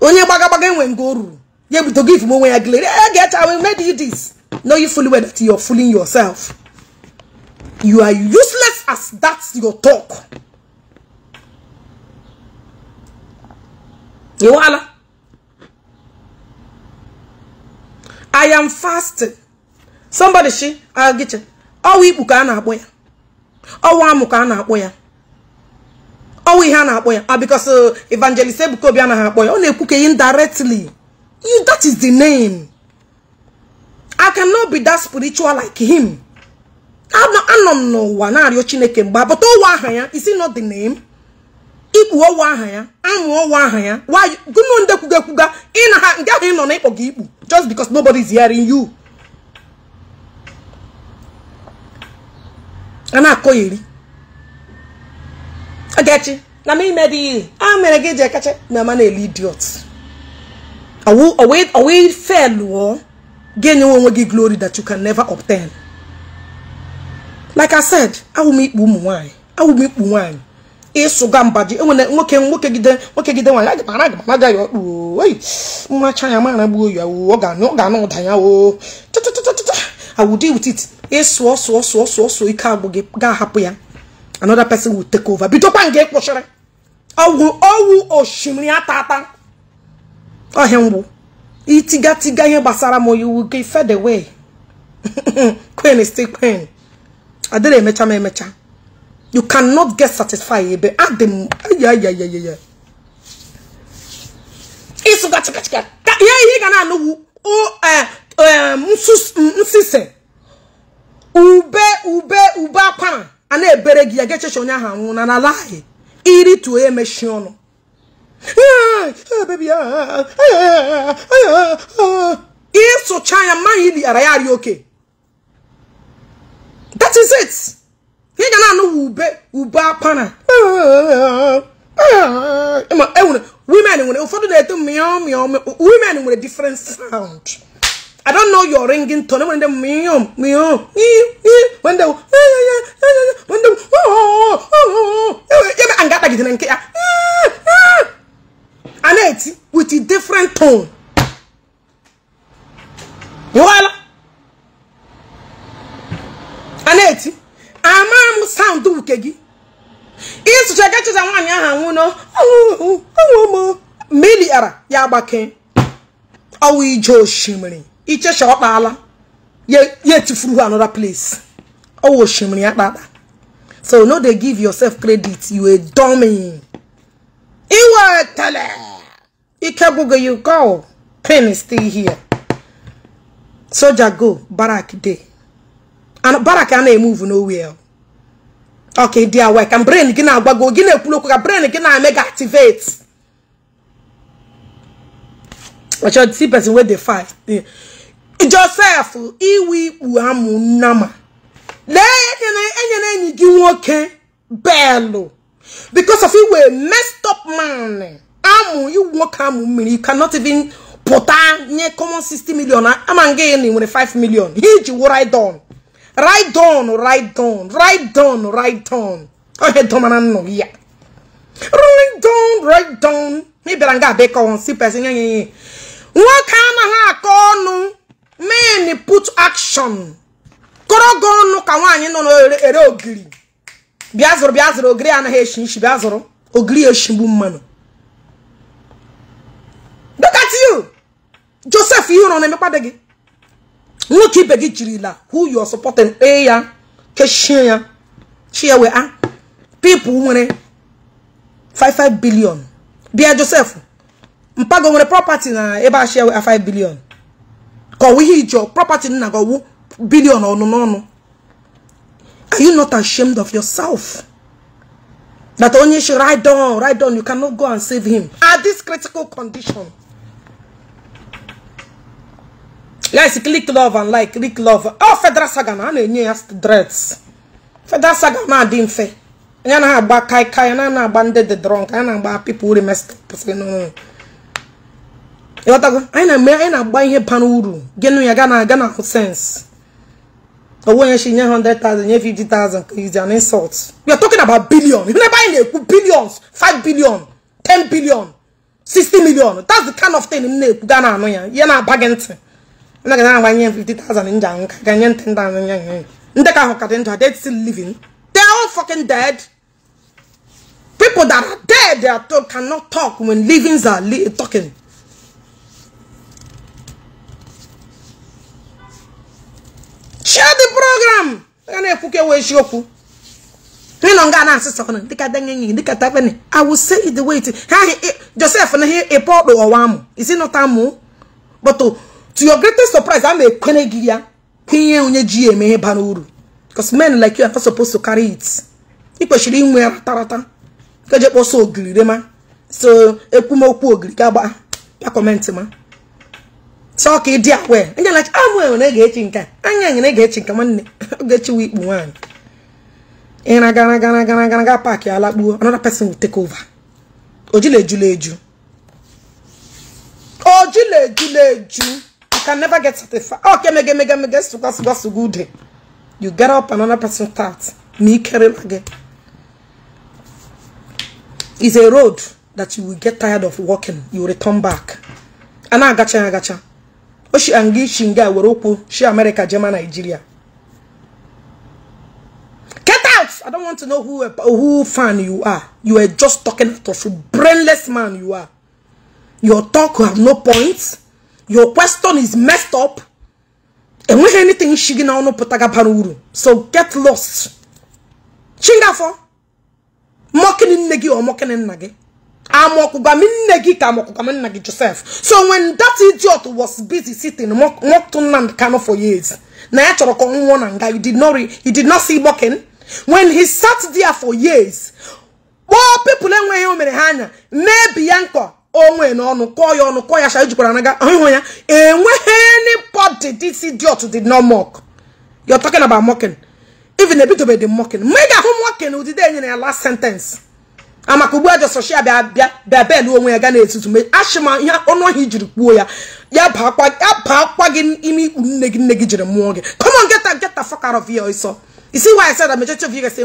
Only baga baga when ngo ruru to give him when ya glory. I eh, get I will made you this. Know you fully well that you're fooling yourself. You are useless as that's your talk. You wala. I am fasting. Somebody she agiche. Ọwụ ikpu ka a na-akpọ ya. Ọwụ amụ ka a na-akpọ ya. Ọwụ ihe a na-akpọ ya ah because uh, evangelist Ebuka Obi a na akpọ ya. Ọ na-ekwu ka indirectly. You that is the name. I cannot be that spiritual like him. Anọ m n'ụwa na-arịọ Chineke mgbe abụta ụwa ahụ ya isi it not the name? ikpu ọwụ aha ya amụ ọwụ aha ya gụnụ ndị kwuga ekwuga na ha nke ahụ ị nọ na ịkpọ gị ikpu just because nobody is hearing you a na-akọgheri ogechi na m ime dị ihe a mere gị ji ekacha na ama na-ele idiot owe felụọ ga enye onwe gị glory that you can never obtain like i said awụ ụmụ nwanyị awụ nwanyị ịsụ ịsụga mbaji enwere nwoke nwoke gide nwoke gide nwaanyị aga mara aga mara ya ọkpụ oyi nwa chanya mara gbuo ya oo ọ ga-anụ ọ ga-anụ ụda ya oo tụtụtụtụtụ awụdị wutit ịsụọ sụọ sụọ sụọ sụọ ike agbụ gị ga-ahapụ ya another person will take over bidokwa nke kpụchịrị ọgwụ ọwụ osimiri ata ata ọhịa mgbu itigatiga ihe gbasara m oyiwu gị fed kwen stay kwen adịrị emecha m emecha You cannot get satisfied. ebe adịm Yeah, yeah, yeah, yeah, yeah. gana no. Oh, Ube, ube, ube akwana. Ana ebere gi ageche shonya ha nwuna na lahi. Iri tu eme shiono. Ah, baby, ah, ah, ah, ma hili arayari okay. That is it. He ị ga na-anụ ube ube akpana women nwere ụfọdụ na-eto mịọ mịọ women a different sound I don't know your ringing tone when them meow meow when them when them oh oh oh oh, yeah and got like it nke ya and it with a different tone you all and it ama m sound uke gị ịsụchaga chụcha nwaanyị ahụ anwụ nọ ụmụ mmiri ara ya agbake ọwụ ije osimiri ichecha ye, ya etifuru another place ọwụ osimiri ya kpakpa so no dey give yourself credit you a dummy iwetele tele. bụgo you go pain is still here soldier go barrack dey baraka na-emuvu nowel ọka ịdị awa ka brain gị na-agbago gị na-ekwulu ka brain gị na-eme gị activate ọchọ see person wey dey fight joseph iwe ikpu amụ nnama lee enyere enyi gị nwoke because of iwe messed up man amụ you nwoke amụ mmiri you cannot even pụta nye common 60 million ama nga na ị nwere 5 million he ji wụrụ idon right down right down right down right down ohe domana no yeah. right down right down mi bera nga be ko on si person nyenye won kana ha ko nu men put action koro go nu ka wanyi no ere ogiri bia zoro bia zoro ogiri ana he shin shi bia ogiri shimbu mmanu look at you joseph you no na me padegi nwoke ibe gị jirila who you are supporting kpee ya kechie ya chi ya wee a ah, people nwere 55 billion bịa Joseph mpago nwere property na ebe a chi ya wee 5 ah, billion ka ọwụ ihe ijọ property nna gị ọwụ billion ọnụ n'ọnụ are you not ashamed of yourself that onye should write down write down you cannot go and save him at this critical condition guys click love and like click love ọ oh, Federal Saga na na-enye ya dreads Federal Saga na-adị mfe ya na-agba kai kai na na-agba ndị dị drunk anya na-agba people remesịrị ịghọtago anyị na-eme anyị na-agba ihe bara uru gịnụ ya gaa na aga na ahụ sense owó nye hundred thousand nye fifty is an insult we are talking about billion ibi n'ebe na-ekwu billions five billion ten billion sixty million that's the kind of thing m na-ekwu ga na anụ ya ihe na-aba gị ntị na gana agba nye 50,000 nja nka ga nye 10,000 nya nya ka ahụ ka dị still living they all fucking dead people that are dead they are told cannot talk when livings are li talking share the program I will say it the way it is. Joseph, Is it not But to your greatest surprise a na-ekwene gị ya kwinye onye ji ya eme ihe bara uru because men like you are not supposed to carry it i kwesịrị inwe ya ratarata keje kpọsọ ogiri rema so ekwumokwu ogiri ka gbaa ya kọmentị ma sọ ka ị dị awe anya lachi amụ ah, enwe na ga-echi nke anya enwe ga-echi nke nwanne ga-echi wa ikpu nwaanyị ịra gara gara gara gara ga paakị ala kpuo another person will take over ojila ejula eju ojila ejula eju can never get satisfied. Okay, oh, me get, mege, mege, mege, suga, suga, sugude. You get up, and another person starts. Me carry again. It's a road that you will get tired of walking. You return back. And I gotcha, I gotcha. Oshi oh, angi shinga woroku. She America, German, Nigeria. Get out! I don't want to know who who fan you are. You are just talking out of brainless man you are. Your talk have no points your question is messed up enweghị anything shi gị n'ọnụ pụtaga bara so get lost Chinga for. nne gị or nna gị amọkụgwam nne gị ka amọkụgwam nna joseph so when that idiot was busy sitting mocked Nnamdi for years na ya chọrọ ka did not he did not see mocking when he sat there for years kpọọ people enweghị o onwe na ọnụ kọọ ya ọnụ kọọ ya sha ijikwara naga ahụhụ ya enweghị anybody this idiot did not mock you're talking about mocking even ebidobe dị mocking mgbe ị ga-ahụ mocking ụdịdị enye na ya last sentence amaka ugbu a jọsọshia bịa bịa bịa onwe ya ga na-etutu me ashịma ihe ọnụ ọhịa jiri kpuo ya ya baa akwa gị ime ikpu nne gị nne gị jiri mụọ gị come on get a get a ọsọ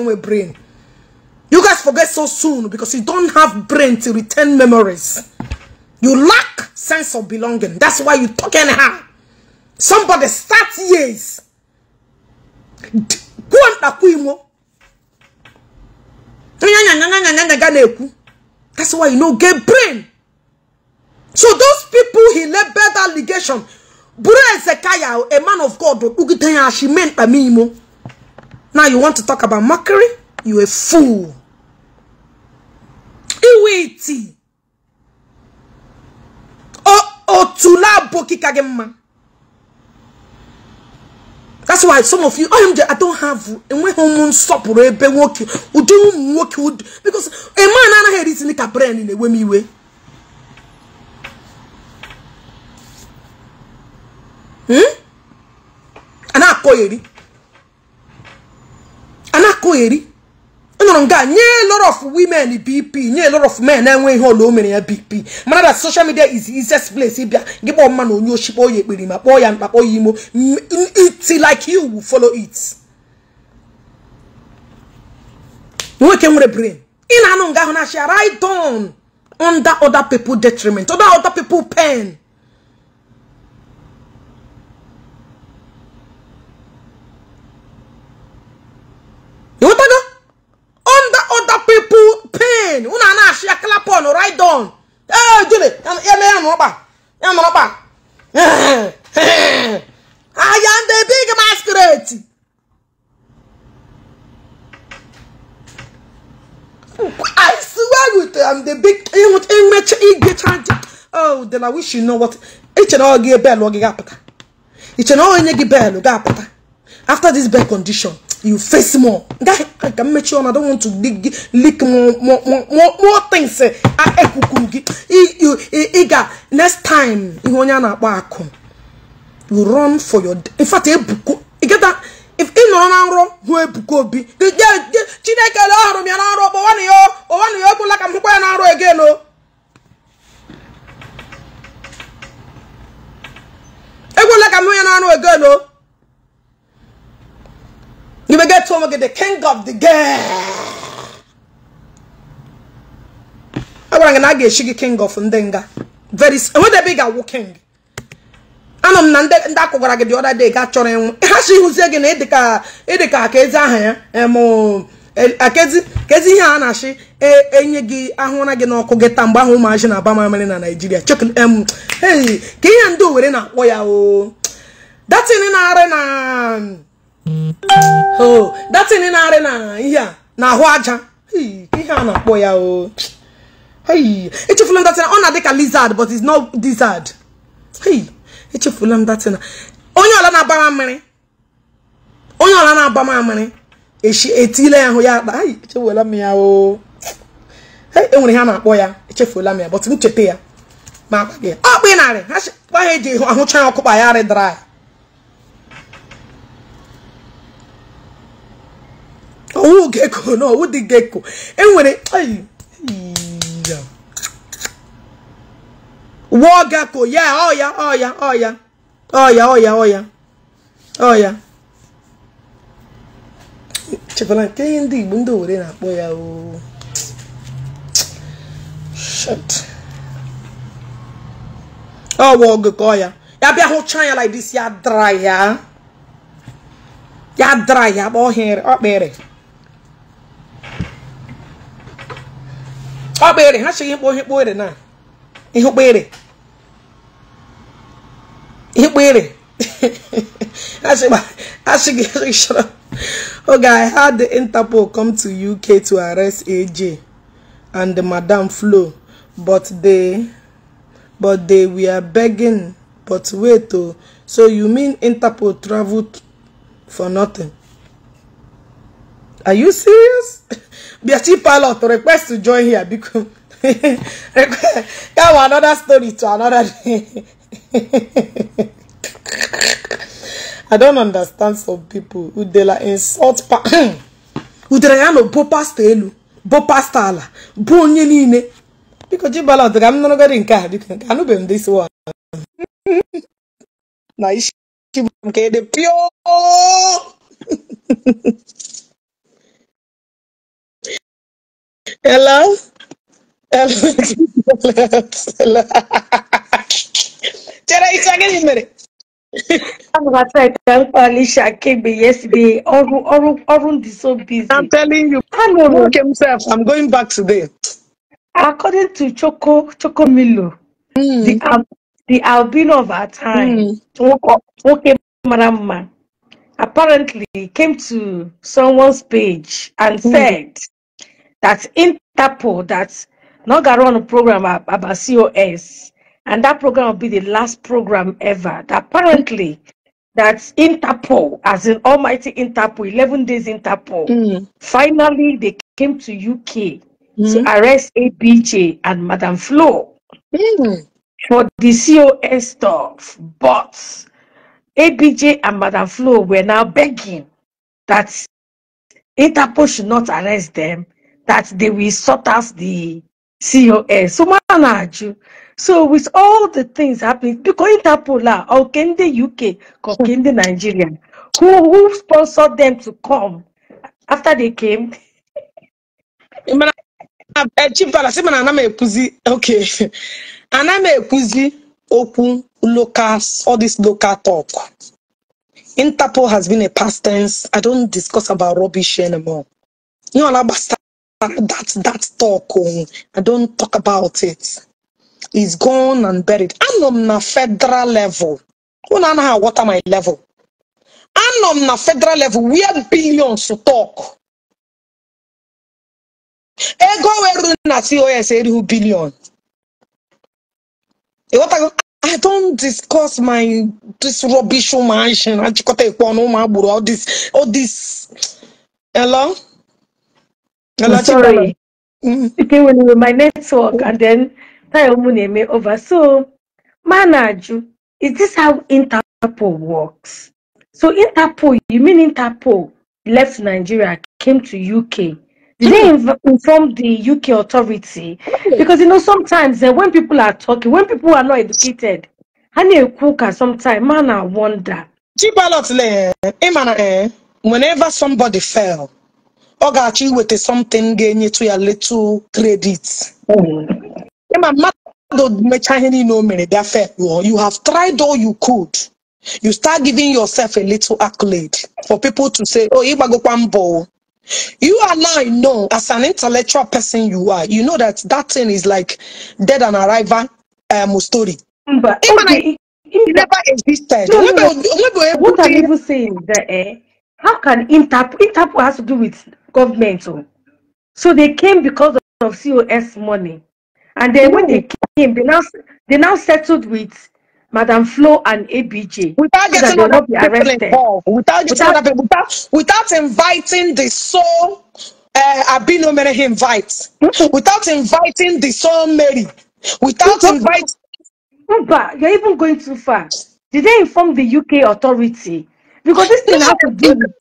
enwe brain You guys forget so soon because you don't have brain to retain memories. You lack sense of belonging. That's why you talk anyhow. Somebody start years. That's why you know get brain. So those people he led bad allegation. Buru Ezekiah, a man of God, Now you want to talk about mockery? You a fool. do it otu n'abụ abụghị ka gị mma that's why some of you oh, I don't have enweghị ụmụ nsọpụrụ ebe eh, nwoke ụdị ụmụ nwoke because a man anaghị eritili ka brain na-ewe m iwe hmm? a na-akọ nụrụ nga nye lot of women bp nye lot of men na-enwe ihe ole mere ya bp mana na social media is easiest place ịbịa gị kpọọ mma na onye ochi kpọọ ya ekpiri ma kpọọ ya mkpa kpọọ ya imo mm, mm, it like you will follow it nwoke nwere brain ị na-anụ nga ahụ na-achị right on under other people detriment under other people pain again unu a na-achị klapon right down ee jule eme ya nọkpa ya nọkpa ahịa ndị big masquerade I swear with I'm the big image igbecha oh then I wish you know what iche na ọ gị belu ọ gị ga-apụta iche na onye gị belu ga-apụta after this bad condition you face more I can make sure I don't want to dig leak more more more, more things eh. I eh, next time you run for your in fact you get that if ị nọ na hụ ebuku obi chineke le chineke m ya na nrọ kpọwanụ ya ọwanụ ya ọbụla ka m hụkwa ya na o oh. ka m hụ ya na nrọ o oh? You will get to him the king of the game. I want to get shiggy king of Ndenga. Very when the big awu king. m na ndị ndị akwụgwara gị the other day ga chọrọ ịnwụ ha si gị na ka ịdịka akezi aha ya akezi kezi uh-huh. um, uh, uh, ihe eh, eh, um, a na-achị enye gị ahụra gị n'ọkụ gị ta mgbe ahụ ụmụazị na-aba na Naịjirịa ka ihe ndị Owere na-akpọ ya o datin na-arị na o datin na-arị na ihe na-ahụ aja ihe a na-akpọ ya o echefula m datin ọ na-adị ka lizard but it's not lizard m onye ọla na-agbama mmiri onye na ya ahụ ya akpa ya o enwere ha na-akpọ ya echefuola m ya but m oh. eh, ya ma akpa gị ọkpụ narị ha eji ahụcha ya ya arị dry ọwụ geko na ọwụ dị geko enwere wụọ geko ya ọya ọya ọya ọya ọya ọya ọya chekwara nke ihe ndị igbo ndị owere na-akpọ ya oo ọwa ogeko ọya ya bịa hụcha ya like this ya dra ya ya dra ya kpọọ ọkpịrị ọkpere ha chịghị mkpo ihe kpere na ihe kpere ihe kpere achịghị chọrọ oge i had the interpol come to uk to arrest aj and the madam flo but they but they were begging but wait o oh. so you mean interpol traveled for nothing Are you serious? Biachi Pilot request to join here because come another story to another day. I don't understand some people who they like insult pa udere ya no bo pasta elu bo pasta ala bo onye niile biko ji balọt ka m nụrụgodi nke a nke this one na isi bụ nke
Hello? Hello?
Hello? Chara, it's again in minute. I'm about to tell Alicia Kebe yesterday. Orun, is so busy. I'm telling you. I know. Work himself. I'm going back today. According to Choco, Choco Milo, mm. the, um, the albino of our time, mm. Choco, Choco Marama, apparently came to someone's page and mm. said, that Interpol that not going to run a program about COS, and that program will be the last program ever. That apparently, that Interpol, as in Almighty Interpol, eleven days Interpol. Mm. Finally, they came to UK mm. to arrest ABJ and Madame Flo mm. for the COS stuff, but. ABJ and Madame Flo were now begging that Interpol should not arrest them that they will sort us the COS. So, manaju. So, with all the things happening, because Interpol are in the UK, in the Nigeria, who, who sponsored them to come after they came?
Eh, Chief Dala, sị mana ana m ekwuzi okay ana m open local all this local talk Interpol has been a past tense I don't discuss about rubbish anymore ihe ọla that that talk on oh, i don't talk about it. It's gone and buried I'm on a federal level unu anaghị awọta my level I'm on a federal level We have billions to talk
ego were na cos erihu
billion ịghọtago I don't discuss my this rubbish mansion. I just got a all this all this hello sorry.
Mm. Speaking with my network and then Tayomuneme over. So, Manaju, is this how Interpol works? So, Interpol, you mean Interpol left Nigeria, came to UK. Did they mm. inform the UK authority? Because you know, sometimes uh, when people are talking, when people are not educated, honey cooker sometimes,
man, I wonder. Eh, eh, whenever somebody fell, ọ ga-achọ iweta something ga-enyetụ ya little credit mm-hmm. ma mmadụ mechaa ihe niile o mere bịa fe you have tried all you could you start giving yourself a little accolade for people to say oh ịgbagokwa mbọ You and I know, as an intellectual person, you are. You know that that thing is like dead and arrival um, story. But okay. never existed.
No, no, no. What are even saying that, eh? How can Interpol, Interpol has to do with government? Oh? So they came because of COS money. And then no. when they came, they now, they now settled with Madam Flo and ABJ.
Without getting so other people arrested. involved, without, without, people, without, without inviting the soul uh, eh, Abino Mary invites, hmm? without inviting the soul Mary, without inviting. But you're even going too far. Did they inform the UK authority because this thing has to be with.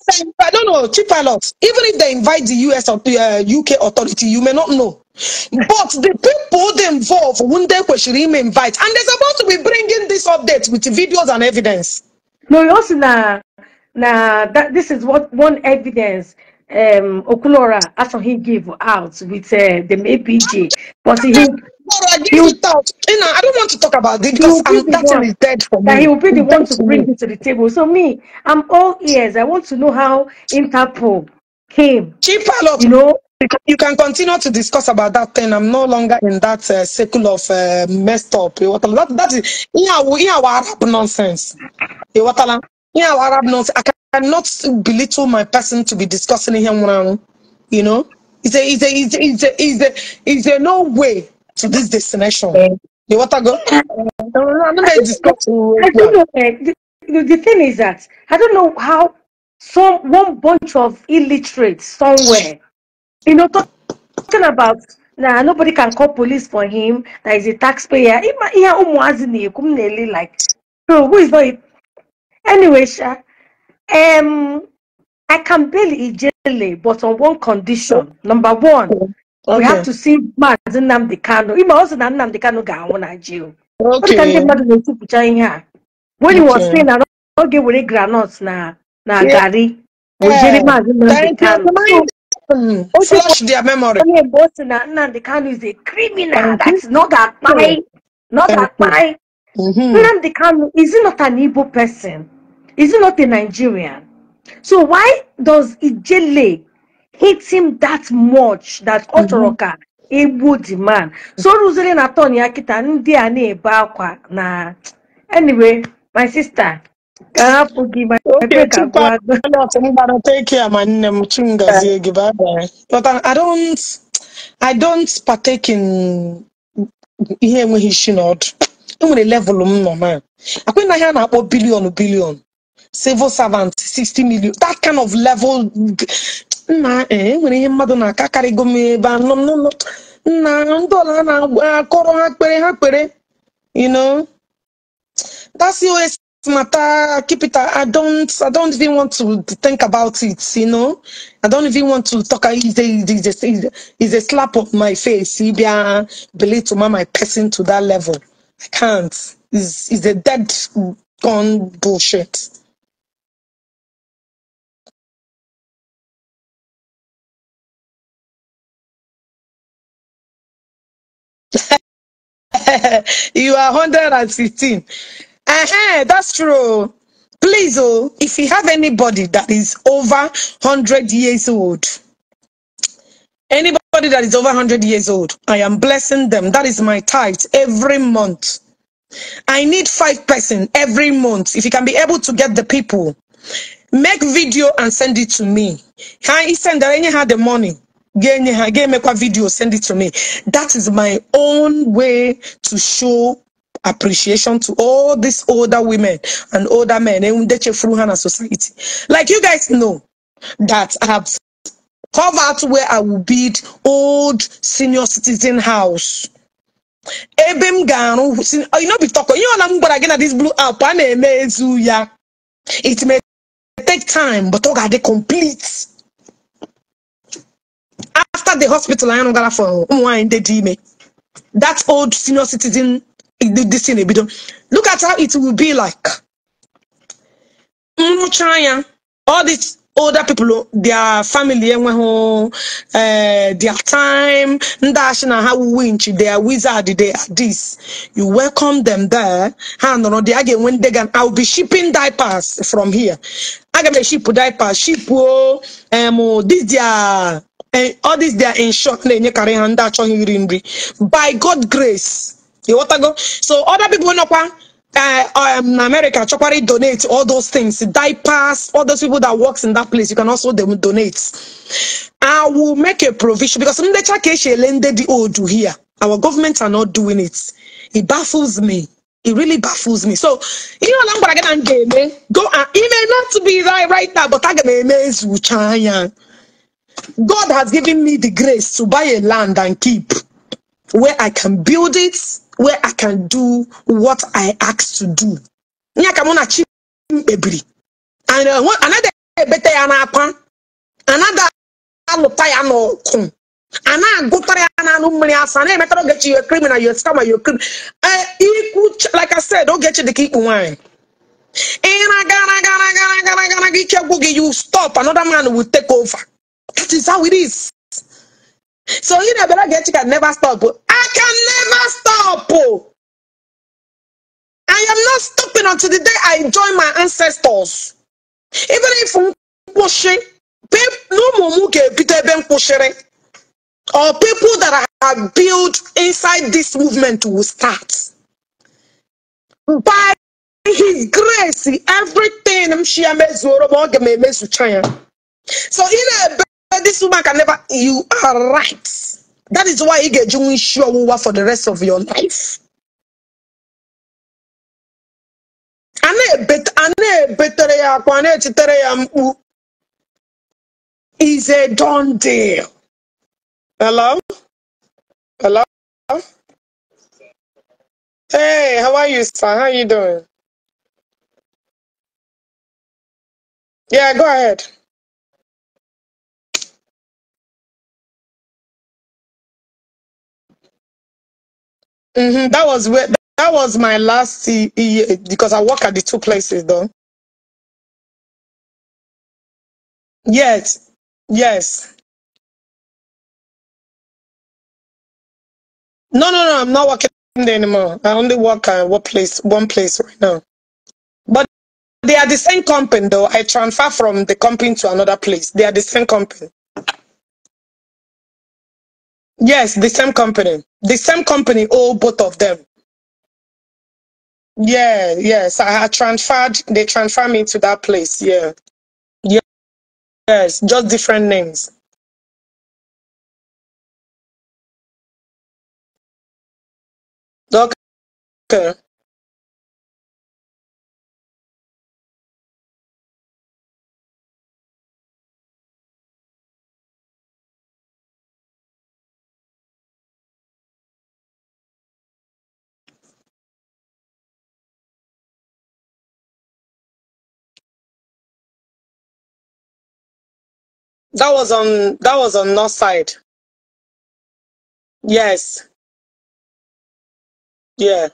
I don't know, chief Even if they invite the US or the uh, UK authority, you may not know. But the people they involve, one day kweshiri may invite, and they're supposed to be bringing this update with videos and evidence. No, you also know, na that this is what one evidence
um Okulora actually he gave out with uh, the APG, but he tomorrow I give you, You know, I don't want to talk about it because be I'm, that one. is dead for me. That he will be the one to bring me. it to the table. So me, I'm all ears. I want to know how Interpol
came. Chief Palop, you know, you can continue to discuss about that thing. I'm no longer in that uh, circle of uh, messed up. That, that is yeah, Arab nonsense. Yeah, Arab nonsense. I cannot belittle my person to be discussing him when you know. Is there, is there, is there, is there, is there no way to this destination. You want to go? Uh, i I don't know. Eh, the,
the thing is that I don't know how some one bunch of illiterates somewhere, you know, talking about now nobody can call police for him. That is a taxpayer. Like, bro, who is not? Anyway, Sha, um, I can barely generally, but on one condition. Number one, Okay. We have to see Maazị Nnamdi Kanu. Ime ọ sị na Nnamdi Kanu ga-anwụ na jail. Ọ dịka
When he was saying
I ọ ga-ewere groundnut na na garri.
Ojiri Maazị
Nnamdi Kanu. Flush their memory. Onye mgbe o sị na Nnamdi Kanu is a criminal that is not akpai. Not akpai. Mm-hmm. Nnamdi Kanu is he not an Igbo person? Is he not a Nigerian? So why does Ijele hit him that much that ọ chọrọ ka egbu the man so mm-hmm. rụziri na turn ya kịta ndị a na-ebe akwa na anyway my sister
ka hapụ gị ma ebe ka I don't I don't partake in ihe enweghị isi na enwere level m nọ na akwe na ihe a na-akpọ bilion bilion civil servant 60 million that kind of level ihe mmadụ na-akakarịgo m ebe n'ụlọ ndị ọla na-akọrọ ha kpere ha kpere you know that's always matter keep it i don't i don't even want to think about it you know i don't even want to talk it's a, it's a, a slap on my face ibia uh, believe to my person to that level i can't Is a dead gone bullshit you are 115. Uh-huh, that's true. Please, oh, if you have anybody that is over 100 years old, anybody that is over 100 years old, I am blessing them. That is my tithe every month. I need five person every month. If you can be able to get the people, make video and send it to me. Hi, send that any had the money. Get me a video send it to me that is my own way to show appreciation to all these older women and older men ndị chefuru ha society like you guys know that I have covered where I will build old senior citizen house ebe m you know be talk ihe ọla m gwara this blue app a it may take time but I'll get the complete after the hospital anyị gara for ụmụ nwaanyị ndị dị that old senior citizen this thing ebido look at how it will be like nrụcha all these older people their family enweghị eh, their time and achị na ha They their wizard they are this you welcome them there ha on. They again. When they ndị i will be shipping diapers from here aga m eship diapers ship o um, this their ọ dis dia inshọt na-enyekarị ha ndị achọghị iri nri by god grace ịghọtago so other people Uh, um, America, Chokwari donate all those things, diapers, all those people that works in that place. You can also them donate. I will make a provision because some the lended the old here. Our governments are not doing it. It baffles me. It really baffles me. So you know, I'm gonna get eh? go and email not to be right right now, but I'm gonna amaze you, God has given me the grace to buy a land and keep where I can build it, where I can do what I ask to do. And uh, one, another ebete ya n'akwa another alụta ya n'ọkụ a na-agụtara ya na anụ mmiri asa i emetara ogechi yo criminal yo scammer yo criminal eh, ikwu like I said ogechi dịka ikpu nwaanyị ị gotta, na gara gotta, gara gara ike gwụ gị you stop another man will take over that is how it is. So you get Abelagechi can never stop. I can never stop. I am not stopping until the day I join my ancestors. Even if pushing, or people that have built inside this movement will start. By his grace, everything I'm sure So in a this woman can never you are right that is why you get you sure for the rest
of your life a na-ebetere is a done deal hello hello hey how are you sir how are you doing yeah go ahead Mm -hmm. That was where that was my last year because I work at the two places though. Yes, yes. No, no, no. I'm
not working there anymore. I only work at one place, one place right now. But they are the same company though. I transfer from the company to another place. They are the same company.
Yes, the same company. The same company All both of them. Yeah, yes. I had transferred, they transferred me to that place. Yeah. yeah. Yes, just different names. Okay. That was on that was on north side. Yes. Yeah.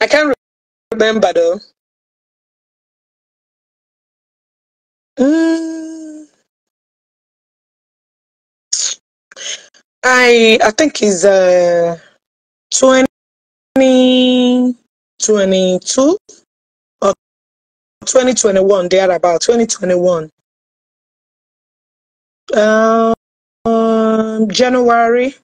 I can't remember though. Mm. I I think it's uh 2022 or 2021 about 2021 um, um January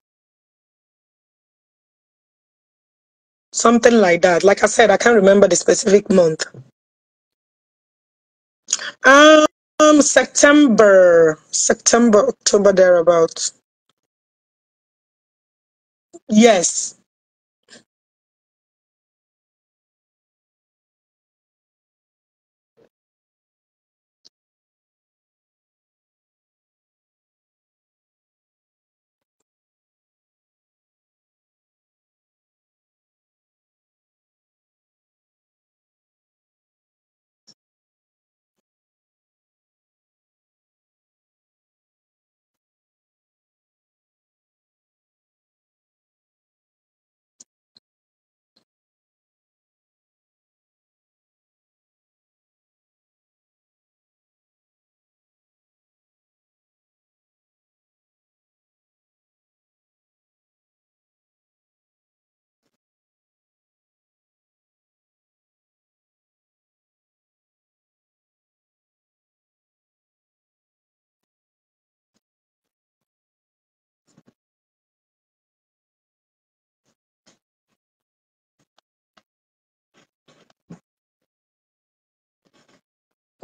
something like that like I said I can't remember the specific month um September September October thereabouts Yes.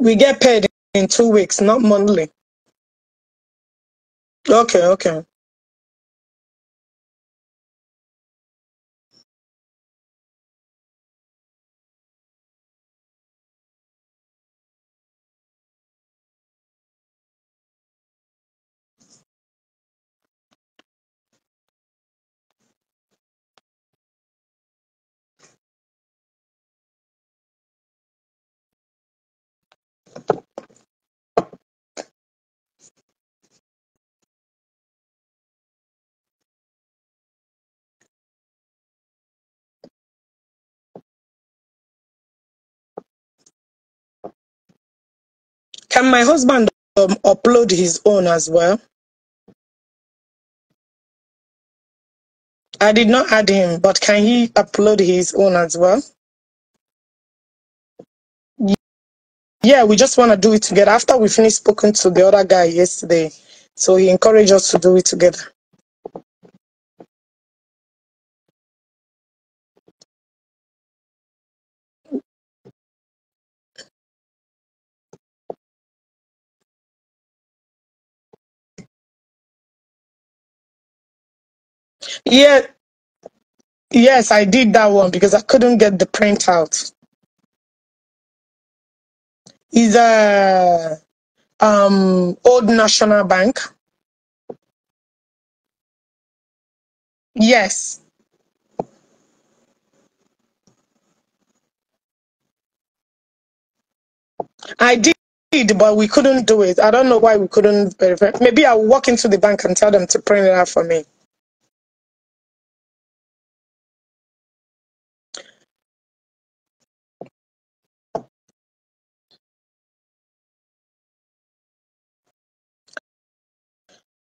We get paid in two weeks, not monthly. Okay, okay. Can my husband um, upload his own as well? I did not add him, but can he upload his own as well? Yeah, we just want to do it together. After we finished speaking to the other guy yesterday, so he encouraged us to do it together. Yeah, yes, I did that one because I couldn't get the printout. Is a um, old National Bank. Yes, I did, but we couldn't do it. I don't know why we couldn't verify. Maybe I'll walk into the bank and tell them to print it out for me.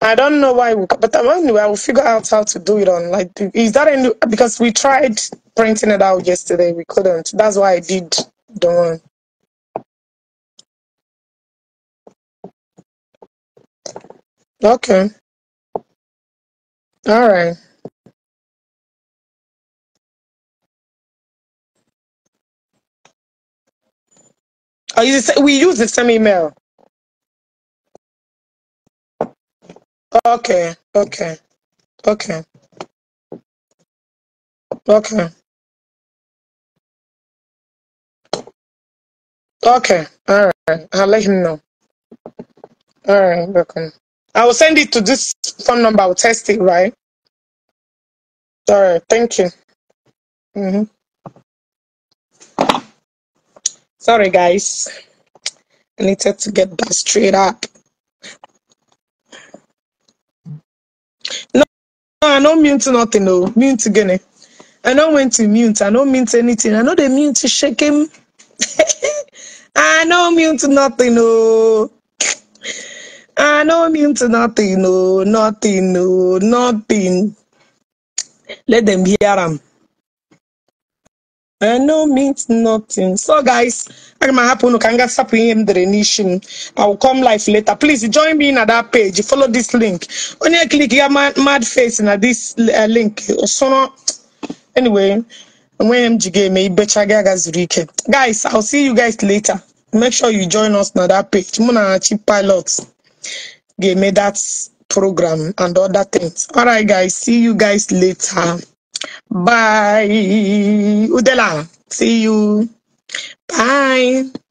I don't know why, but but um, anyway, I will figure out how to do it on. Like, is that any, because we tried printing it out yesterday, we couldn't. That's why I did the one.
Okay. All right. Oh, you we use the same email. Okay. Okay. Okay. Okay. Okay. All right. I'll let him know. All right. Welcome. I will send it to this phone number. I'll test it, right? All right. Thank you. Mm-hmm. Sorry,
guys. I needed to get that straight up. I don't mean to nothing, no. Mean to Guinea. I don't mean to mute. I don't mean to anything. I know they mean to shake him. I don't mean to nothing, no. I don't mean to nothing, no. Nothing, no. Nothing. Let them hear him. I eh, no means nothing. So guys, I'm gonna happen. Can get up in the nation. I will come live later. Please join me in that page. Follow this link. Only click your mad, mad face in this eh, link. So anyway, when MG may better Guys, I'll see you guys later. Make sure you join us on that page. Muna cheap pilots. Give me that program and other things. All right, guys. See you guys later. Bye. Udela. See you. Bye.